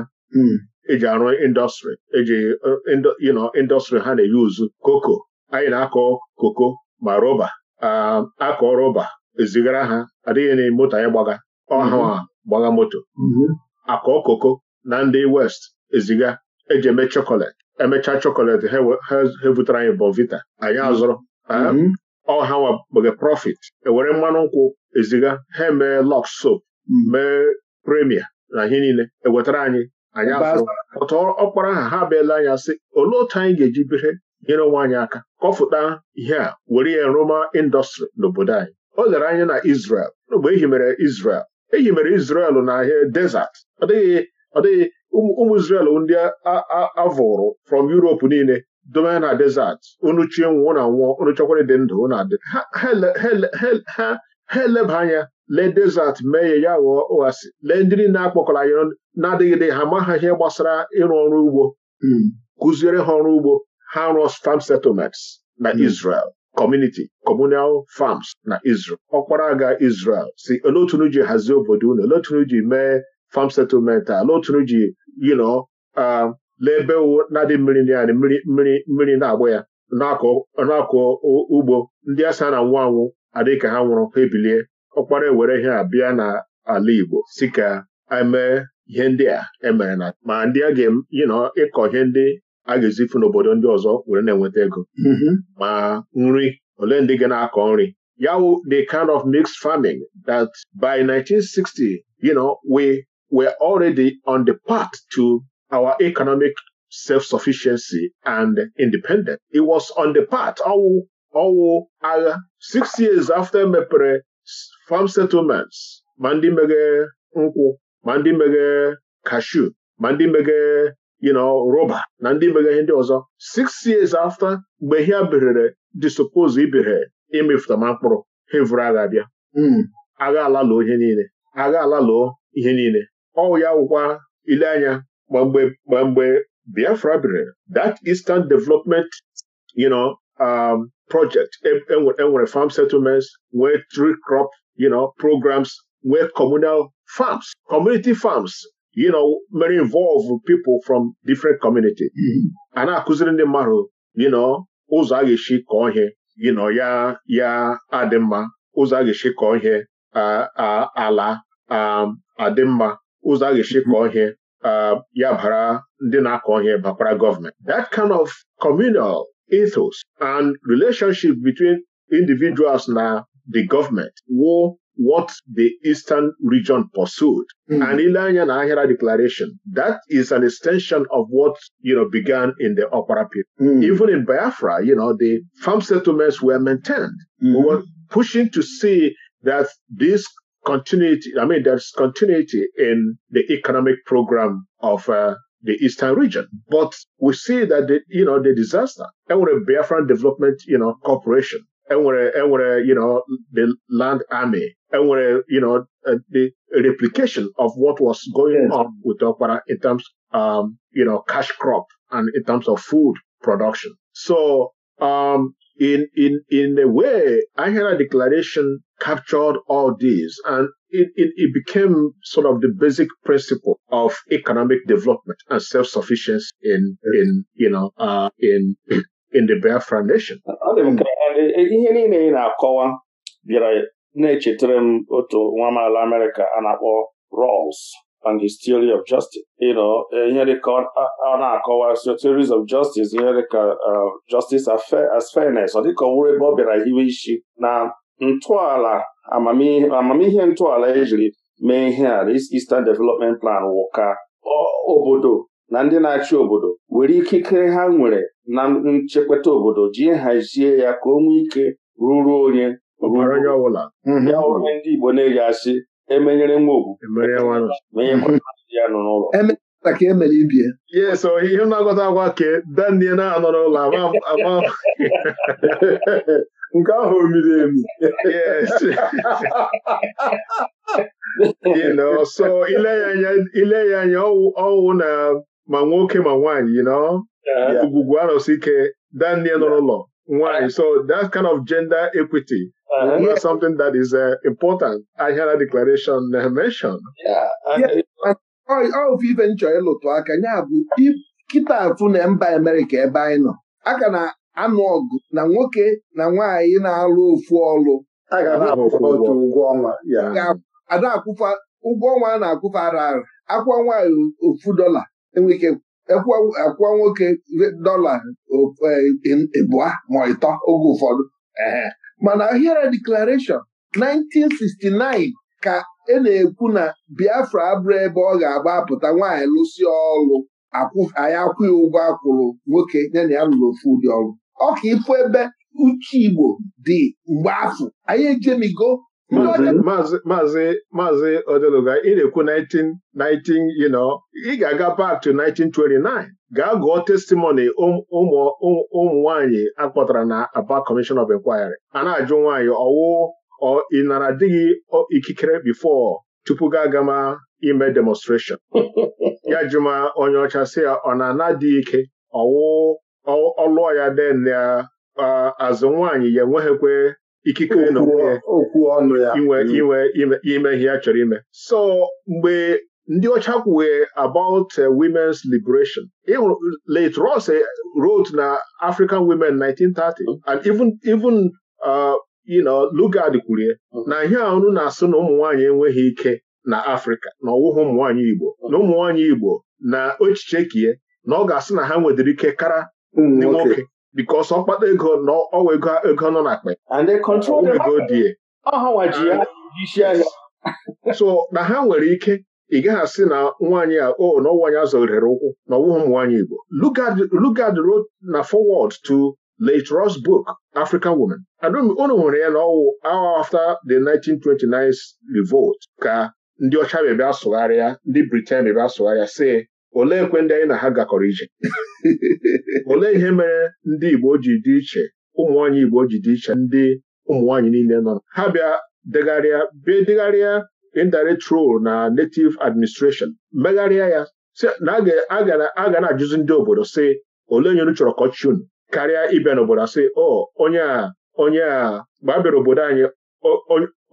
eji arụ indọstrị eji uh, indọstrị ha na-eyuzu koko anyị na-akọ koko ma rọba um, akọ rọba ezigara ha adịghị na moto anyị gbaga ọha mm-hmm. gbaga moto mm-hmm. akọ koko na ndị west eziga eji eme chọkọletị emechaa chọkọletị ha butere anyị bọvita anyị mm-hmm. azụrụ mm-hmm. ọha nwabege profit ewere mmanụ nkwụ eziga ha emee lọk soap mm-hmm. mee premia na ihe niile ewetara anyị anyị azụrụ ọtọ ọkpara aha ha bịala anyị asị olee otu anyị ga-eji bere nyere onwe anyị aka kọfụta ihe a were ya roma indọstrị n'obodo anyị o lere anya na Israel mgbe ehi mere isrel Eyi mere na n'ahịa desert ọ dịghị ọ dịghị ụmụ Israel ndị avụrụ from Europe niile dome na desert unu chie nwụọ na nwụọ unu dị ndụ unu dị. ha eleba anya lee desert mee ya ya ghọọ ụghasi lee ndị niile akpọkọrọ anyị na-adịghịde ha ma ha ihe gbasara ịrụ ọrụ ugbo hmm. kụziere ha ọrụ ugbo ha rụọ farm settlements na hmm. Israel community communal farms na Israel Ọkpara aga Israel si olotunu ji hazie obodo unu olotunu ji mee farm settlement a olotunu ji yino ebe na-adị mmiri ndị anyị mmiri mmiri na-agba ya na-akọ ugbo ndị asa na anwụ anwụ adịghị ka ha nwụrụ ha ebilie ọkpara ewere ihe a bịa na ala Igbo si ka emee ihe ndị a emere na ma ndị a ga-eyinọ ịkọ ihe ndị a ga n'obodo ndị ọzọ were na-enweta ego mm-hmm. ma nri ole ndị ga na-akọ nri ya the kind of mixed farming that by 1960 you know, we were already on the path to our economic self-sufficiency and independence. It was on the path ọwụ ọwụ agha six years after mepere farm settlements ma ndị meghe nkwụ ma ndị meghe kashu ma ndị meghe you know roba na ndị mega ndị ọzọ six years after mgbe ha birere supose ibere ma mkpụrụ ha vụrụ agha abịa hmm. agha ala lụọ ihe niile agha lụọ ihe niile ọ ya wụkwa ile anya mgbe mgbe Biafra birere that Eastern Development you know, um, project enwere e e farm settlements nwee tree crop you know, programs nwee communal farms community farms you know, mere involve people from different community mm-hmm. a na-akụziri ndị mmadụ you know ụzọ a ga-esi kọọ ihe you know ya ya adị mma ụzọ a ga-esi kọọ ihe ala adị mma ụzọ a ga-esi kọọ ihe ya bara ndị na-akọ ihe bakwara gọọmenti that kind of communal ethos and relationship between individuals na the government wụ what the Eastern region pursued. Mm-hmm. And and Ahira declaration, that is an extension of what, you know, began in the Upper period. mm Even in Biafra, you know, the farm settlements were maintained. mm We hmm. were pushing to see that this continuity, I mean, there's continuity in the economic program of uh, the eastern region. But we see that, the, you know, the disaster, and with Biafran Development, you know, Corporation, enwere enwere you know the land army enwere you know uh, the replication of what was going on with Okpara in terms um you know cash crop and in terms of food production so um in in in a way Ahira declaration captured all these and it, it, became sort of the basic principle of economic development and self-sufficiency in, yes. in you know, uh, in in the Biafran Nation. E, ihe niile ị na-akọwa bịara na-echetara m otu nwa amaala Amerịka a na-akpọ Rawls and his theory of justice you know e, ihe dịka ọ na-akọwa so theories of justice ihe dịka uh, justice as fairness ọ dịka ọ wụrụ ebe ọ bịara hiwe isi na ntọala amamihe ntọala ejiri mee ihe a Eastern Development Plan wụka obodo na ndị na-achị obodo were ikikere ha nwere na nchekweta obodo ji hazie ya ka o nwee ike ruru onye ya onye mhm. ndị Igbo na-eyi asị emenyere nwa ogwu e (laughs) ya nọ n'ụlọ ka emere ibie ya so ihe na-agọta agwa ka danie na-anọ n'ụlọ ama (laughs) nke ahụ omiri emi (laughs) ile ya anya ọwụ na ma nwoke ma nwaanyị you know ugwugwu arụsị ike Daniel nọ n'ụlọ nwaanyị so that kind of gender equity Uh, yeah. something that is uh, important. I hear a declaration uh, mentioned. Yeah, and ọ bụ ife nchọ ịlụtụ aka ya bụ kịta afụ na mba Amerịka ebe anyị nọ aka na-anụ ọgụ na nwoke na nwaanyị na-alụ ofu ọlụ ada akwụfa ụgwọ ọnwa a na-akwụfa ara ara akwụọ nwaanyị ofu dọla enwere ike akwụwa nwoke dọla e, ịbụa ma ịtọ oge ụfọdụ mana ahịara deklarashọn 1969 ka e na-ekwu na Biafra abụrụ ebe ọ ga-agba apụta nwaanyị lụsị ọrụ anyị akwụghị ụgwọ akwụrụ nwoke ya na ya lụrụ ofu ụdị ọrụ ọ ka ịfụ ebe uche Igbo dị mgbe afọ anyị ejemigo maazị maazị odeluga ị na-ekwu 19 you ị ga-aga back to 1929 gaa gụọ testimony ụmụ nwanyị akpọtara na Aba Commission of Inquiry a na-ajụ nwaanyị ọwụ ọ ị nara dịghị ikikere before tupu gaa agama ime demonstration (laughs) ya jụma onye ọcha si ya ọ na-ana dị ike ọwụ ọlụọ ya den ya azụ nwaanyị ya enweghịkwe ikike okwu ọnụ ya mm. inwe ime ihe a chọrọ ime so mgbe ndị ọcha kwuwe about uh, women's liberation late Ross eh, wrote na African women 1930 mm. and even even uh, you know Lugard kwurie mm. na ihe ahụ na-asụ na ụmụ enweghị ike na Afrịka na ọwụghị ụmụ Igbo na ụmụnwanyị Igbo na echiche kie na ọ ga-asị na ha nwedịrị ike kara ndị nwoke because ọkpata ego na ọwa ego nọ na akpa ah. so na ha nwere ike ị gaghị asị na nwaanyị a o oh, na ọnwaanyị azọgharịrị ụkwụ na ọwụghị nwaanyị Igbo Lugard rod na forward to late Ross book African Women unu nwere ya na ọwụ hour after the 1929 revolt ka ndị ọcha bịa sụgharịa ndị Britain bịa sụgharịa si olee ekwe ndị anyị na ha gakọrọ ije (laughs) olee ihe mere ndị Igbo ji dị iche ụmụ Igbo ji dị iche ndị ụmụ niile nọ ha bịa degharịa bịa degharịa indirect role na native administration megharịa ya na a ga na-ajụzi ndị obodo sị olee onye unu chọrọ kọchun karịa ịbịa n'obodo asị ọ onye a onye a gbabịara obodo anyị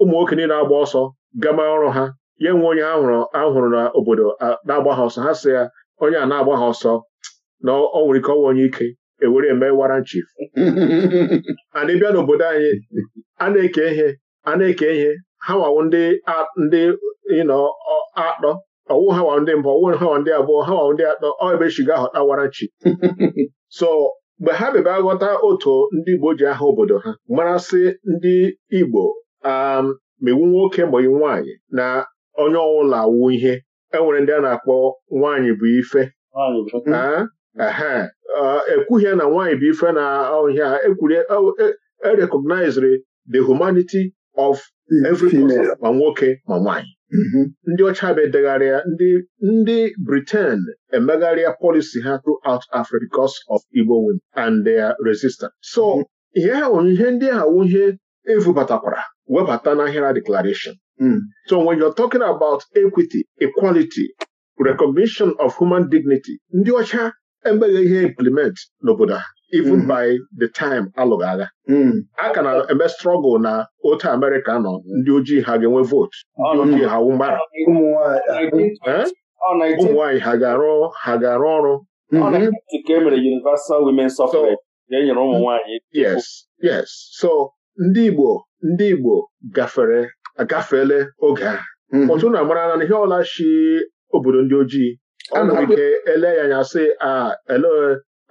ụmụ nwoke niile agba ọsọ gama ọrụ ha ya nwe onye ahụrụ n'obodo na-agba ha ọsọ ha sị ya onye a na-agba ha ọsọ na ọ nwere ike ọnwa onye ike ewere eme wara nchif (laughs) ana ịbịa n'obodo anyị a na-eke ihe a na-eke ihe ha wawo ndị ndị ịnọ atọ ọwụ ha wawo ndị mbụ ọwụ ha wawo ndị abụọ ha wawo ndị atọ ọ ebe shiga ahọta wara chief (laughs) so mgbe ha bịaba aghọta otu ndị Igbo ji aha obodo ha marasị ndị Igbo megbu um, nwoke ma nwaanyị na onye ọbụla awụ ihe enwere ndị a na-akpọ nwaanyị bụ ife ekwughị na nwaanyị bụ ife na ọhịa erecognizere e, e the humanity of every ma nwoke ma nwaanyị mm-hmm. ndị ọcha bụ edegharịa ndị Britain emegharịa policy ha throughout Africa because of Igbo women and their resistance so mm-hmm. ihe ha ihe ndị ahụ ihe evubatakwara webata na ahịra declaration Hmm. So when you're talking about equity, equality, recognition of human dignity, ndị ọcha emeghe ihe implement n'obodo ha even hmm. by the time alụghị agha hmm. a ka na-eme strọgụl na otu Amerịka nọ ndị ojii ha ga-enwe vootu ndị ojii ha mgbara ụmụ nwaanyị ha ga-arụ ha ga-arụ ọrụ e yes yes so ndị Igbo ndị Igbo gafere agafeela oge a ọtụ mhm. na amara na ihe ọla chi obodo ndị ojii ike ele ya anya sị ele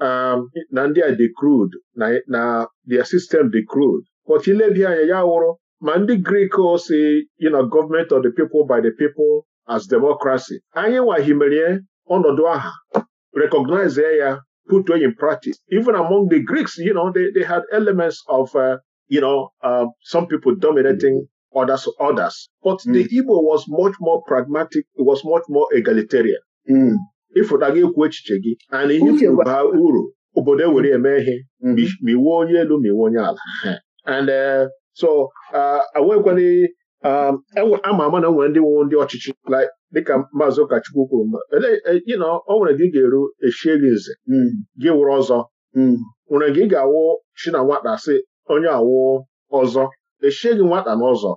um, na ndị a dị crude na their system dị crude but ilebi anya ya wụrụ ma ndị grik si government of the people by the people as democracy anyị nwahimerie ọnọdụ aha recognize ya put way in practice even among the Greeks you know they, they had elements of uh, you know uh, some people dominating others, others. But mm. the hmm. Igbo was much more pragmatic, it was much more egalitarian. ịfụta hmm. gị ekwu echiche gị and ihe kwuru uru obodo ewere eme ihe ma hmm. onye elu ma iwe onye ala (laughs) and uh, so uh, enwekwana um, ama ama na nwere ndị nwe ndị ọchịchị dịka maazị ụkọchukwu kwuru mba ọ e, nwere gị ga-eru eshie gị nze gị wụrụ ọzọ nwere gị ga-awụ chi na nwata sị onye awụ ọzọ eshighị nwata n'ụzọ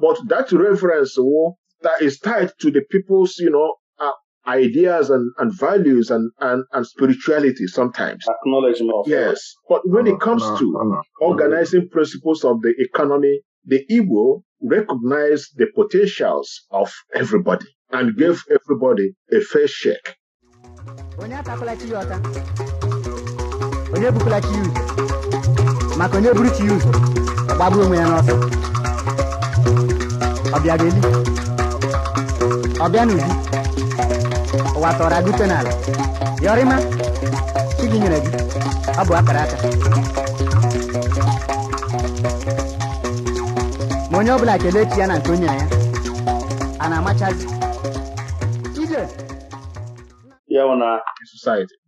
but that reference wụ that is tied to the people's you know, uh, ideas and, and values and, and, and spirituality sometimes. Acknowledgement of Yes. But when it uh-huh. comes uh-huh. to uh-huh. organizing principles of the economy, the Igbo recognize the potentials of everybody and give everybody a fair shake. onye ebukwala ụzọ maka onye buru ụzọ gbagbuo onwe ya n'ọsọ ọbịa ga-eli ọbịa n'ubi ụwa tọrọ agụte n'ala yọrịma chi gị nyere gị ọ bụ akara aka ma onye ọbụla kelee chi ya na nke o nyere ya a na-amachazi gi. ya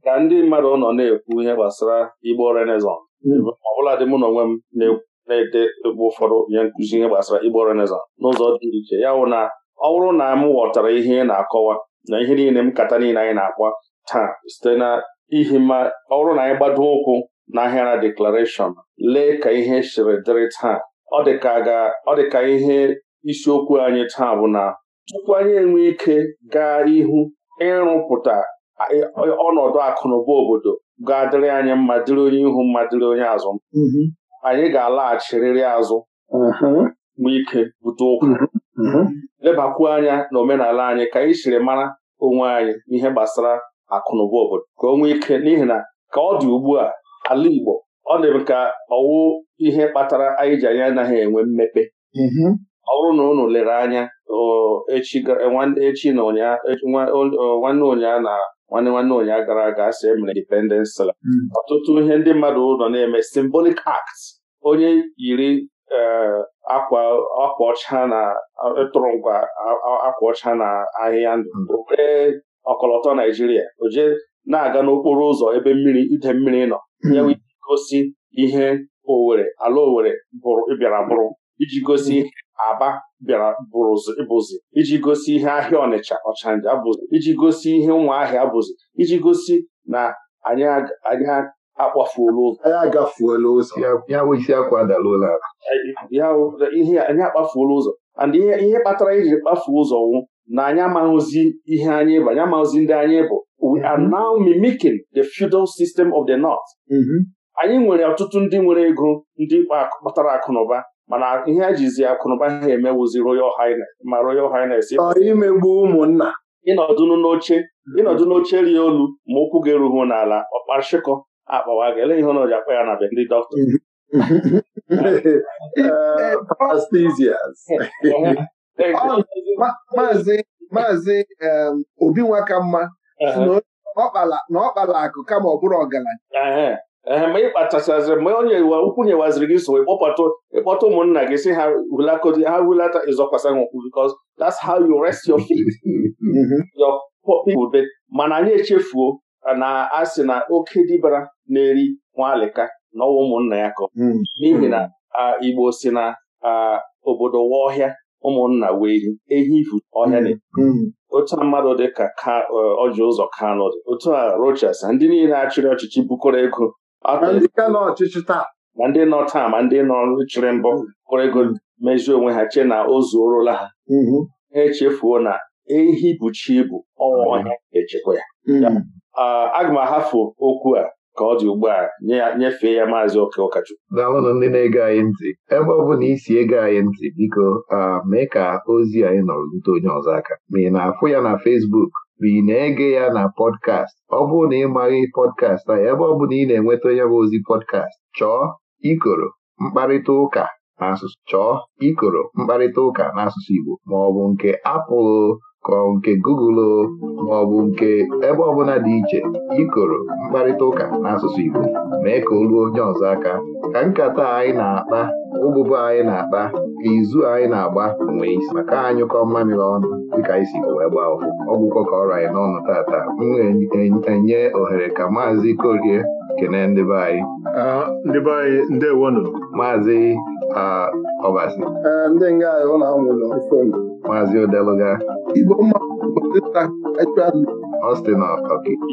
ka ndị mmadụ nọ na-ekwu ihe gbasara Igbo Renaissance mm. ọbụladị mụ na onwe m na-ekwu na-ede ebe ụfọdụ nye nkụzi ihe gbasara Igbo Renaissance n'ụzọ dị iche ya bụ na ọ bụrụ na m ghọtara ihe ị na-akọwa na ihe niile m kata niile anyị na akpọ taa site na ihi ma ọ bụrụ na anyị gbado ụkwụ na-ahịa ahịara deklarashọn lee ka ihe siri dịrị taa ọ dị ka ihe isiokwu anyị taa bụ na tupu anyị enwe ike gaa ihu ịrụpụta ọnọdụ akụnụba obodo ga-adịrị anyị mma dịrị onye ihu mma dịrị onye azụ anyị ga-alaghachirịrị azụ gba ike bute ụkwụ lebakwuo anya na omenala anyị ka anyị chiri mara onwe anyị n'ihe gbasara akụnụba obodo ka o nwee ike n'ihi na ka ọ dị ugbu a ala Igbo ọ dị ka ọwụ ihe kpatara anyị ji anyị anaghị enwe mmepe ọ bụrụ na unu lere anya echi na nwanne ụnyaa na nwanne nwanne ụnyaahụ gara aga asị emere independence la hmm. ọtụtụ ihe ndị mmadụ nọ na-eme symbolic act onye yiri eh, akwa ọcha na ntụrụngwa eh, akwa ọcha na ahịhịa ndụ were hmm. ọkọlọtọ Naijiria oje na-aga n'okporo ụzọ ebe mmiri ide mmiri nọ hmm. ya gosi ihe owere ala Owerri bịara bụrụ iji gosi ihe aba bịara bụrụzi bụzi iji gosi ihe ahịa ọnịcha ọchanja bụzi iji gosi ihe ahịa bụzi iji gosi na anyị akpafuola ụzọ anyị ụzọ anyị akpafuola ụzọ and ihe kpatara iji kpafuo ụzọ nwụ na anyị amaghịzi ihe anyị bụ anyị amaghịzi ndị anyị bụ we are mhm. now mimicking the feudal system of the north. Mhm. anyị nwere ọtụtụ ndị nwere ego ndị kpatara akụ na ụba mana ihe a jizi akụnụba ha emewuzi Royal Highness ma Royal Highness imegbu ụmụnna n'oche ịnọdụ n'oche rie olu ma ụkwụ ga eruhu n'ala ọkpashịkọ akpawa gị eleghị ihe na akpa ya na be ndị dọkịta (laughs) eh, (laughs) maazị obi nwakamma na ọ kpala akụ kama ọ bụrụ ọgaranya ee ma ị kpachachaziri mgbe onye ukwu nyewaziri gị so ịkpọta ụmụnna gị si ha hulakodi ha hulata ịzọkwasa ha ụkwụ because that's how you rest your feet (laughs) mm-hmm. your people mana anyị echefuo na asị na oke dibara na-eri nwaalịka na ọnwa ụmụnna ya kọ mm-hmm. n'ihi na Igbo si na obodo ọhịa ụmụnna wee eri ehi ifu ọhịa na mm-hmm. otu mmadụ dị ka ọjị ụzọ Kanu dị otu a Rochas ndị niile achịrị ọchịchị bukọrọ ego na ndị nọ taa ma ndị nọ chịrị mbọ kpọrọ ego mezie onwe ha chee na o zuorola ha ha echefuo na ehi bụ chi bụ ọnwa ọhịa echekwa ya aga m ahafụ okwu a ka ọ dị ugbu a nyefee ya maazị oke ụkọchukwu daalụnụ ndị na-ege anyị ntị ebe ọ bụla isi ego anyị ntị biko mee ka ozi anyị nọrọ lute onye ọzọ aka ma ị na-afụ ya na Fesbuk. bụ ị na-ege ya na pọdkast ọ bụrụ na ị maghị pọdkast anyị ebe ọ bụla ị na-enweta onye bụ ozi pọdkast chọọ ikoro mkparịta ụka n'asụsụ chọọ ikoro mkparịta ụka n'asụsụ Igbo ma ọ bụ nke apụlụ ka ọ nke Google ma ọ bụ nke ebe ọbụla dị iche ikoro mkparịta ụka n'asụsụ Igbo mee ka o onye ọzọ aka ka nkata anyị na-akpa ụbụbụ anyị na-akpa ka izu anyị na-agba onwe isi maka anyụkọ mmamịrị ọnụ dịka anyị si wee gbaa ọfụ ọ bụkwa ka ọrụ anyị n'ọnụ tata m enye ohere ka maazị Korie kene ndị be anyị ah, ndị be anyị maazị ọbasi ndị nga anyị ụlọ ahụ nwere ofon maazị odeluga igbo mma ọ sị na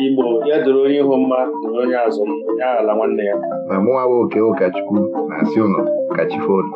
Igbo ya doro onye ihu mma doro onye azụ ya ala nwanne ya ma mụnwa bụ oke ụkọchukwu na-asị ụnụ kachifonu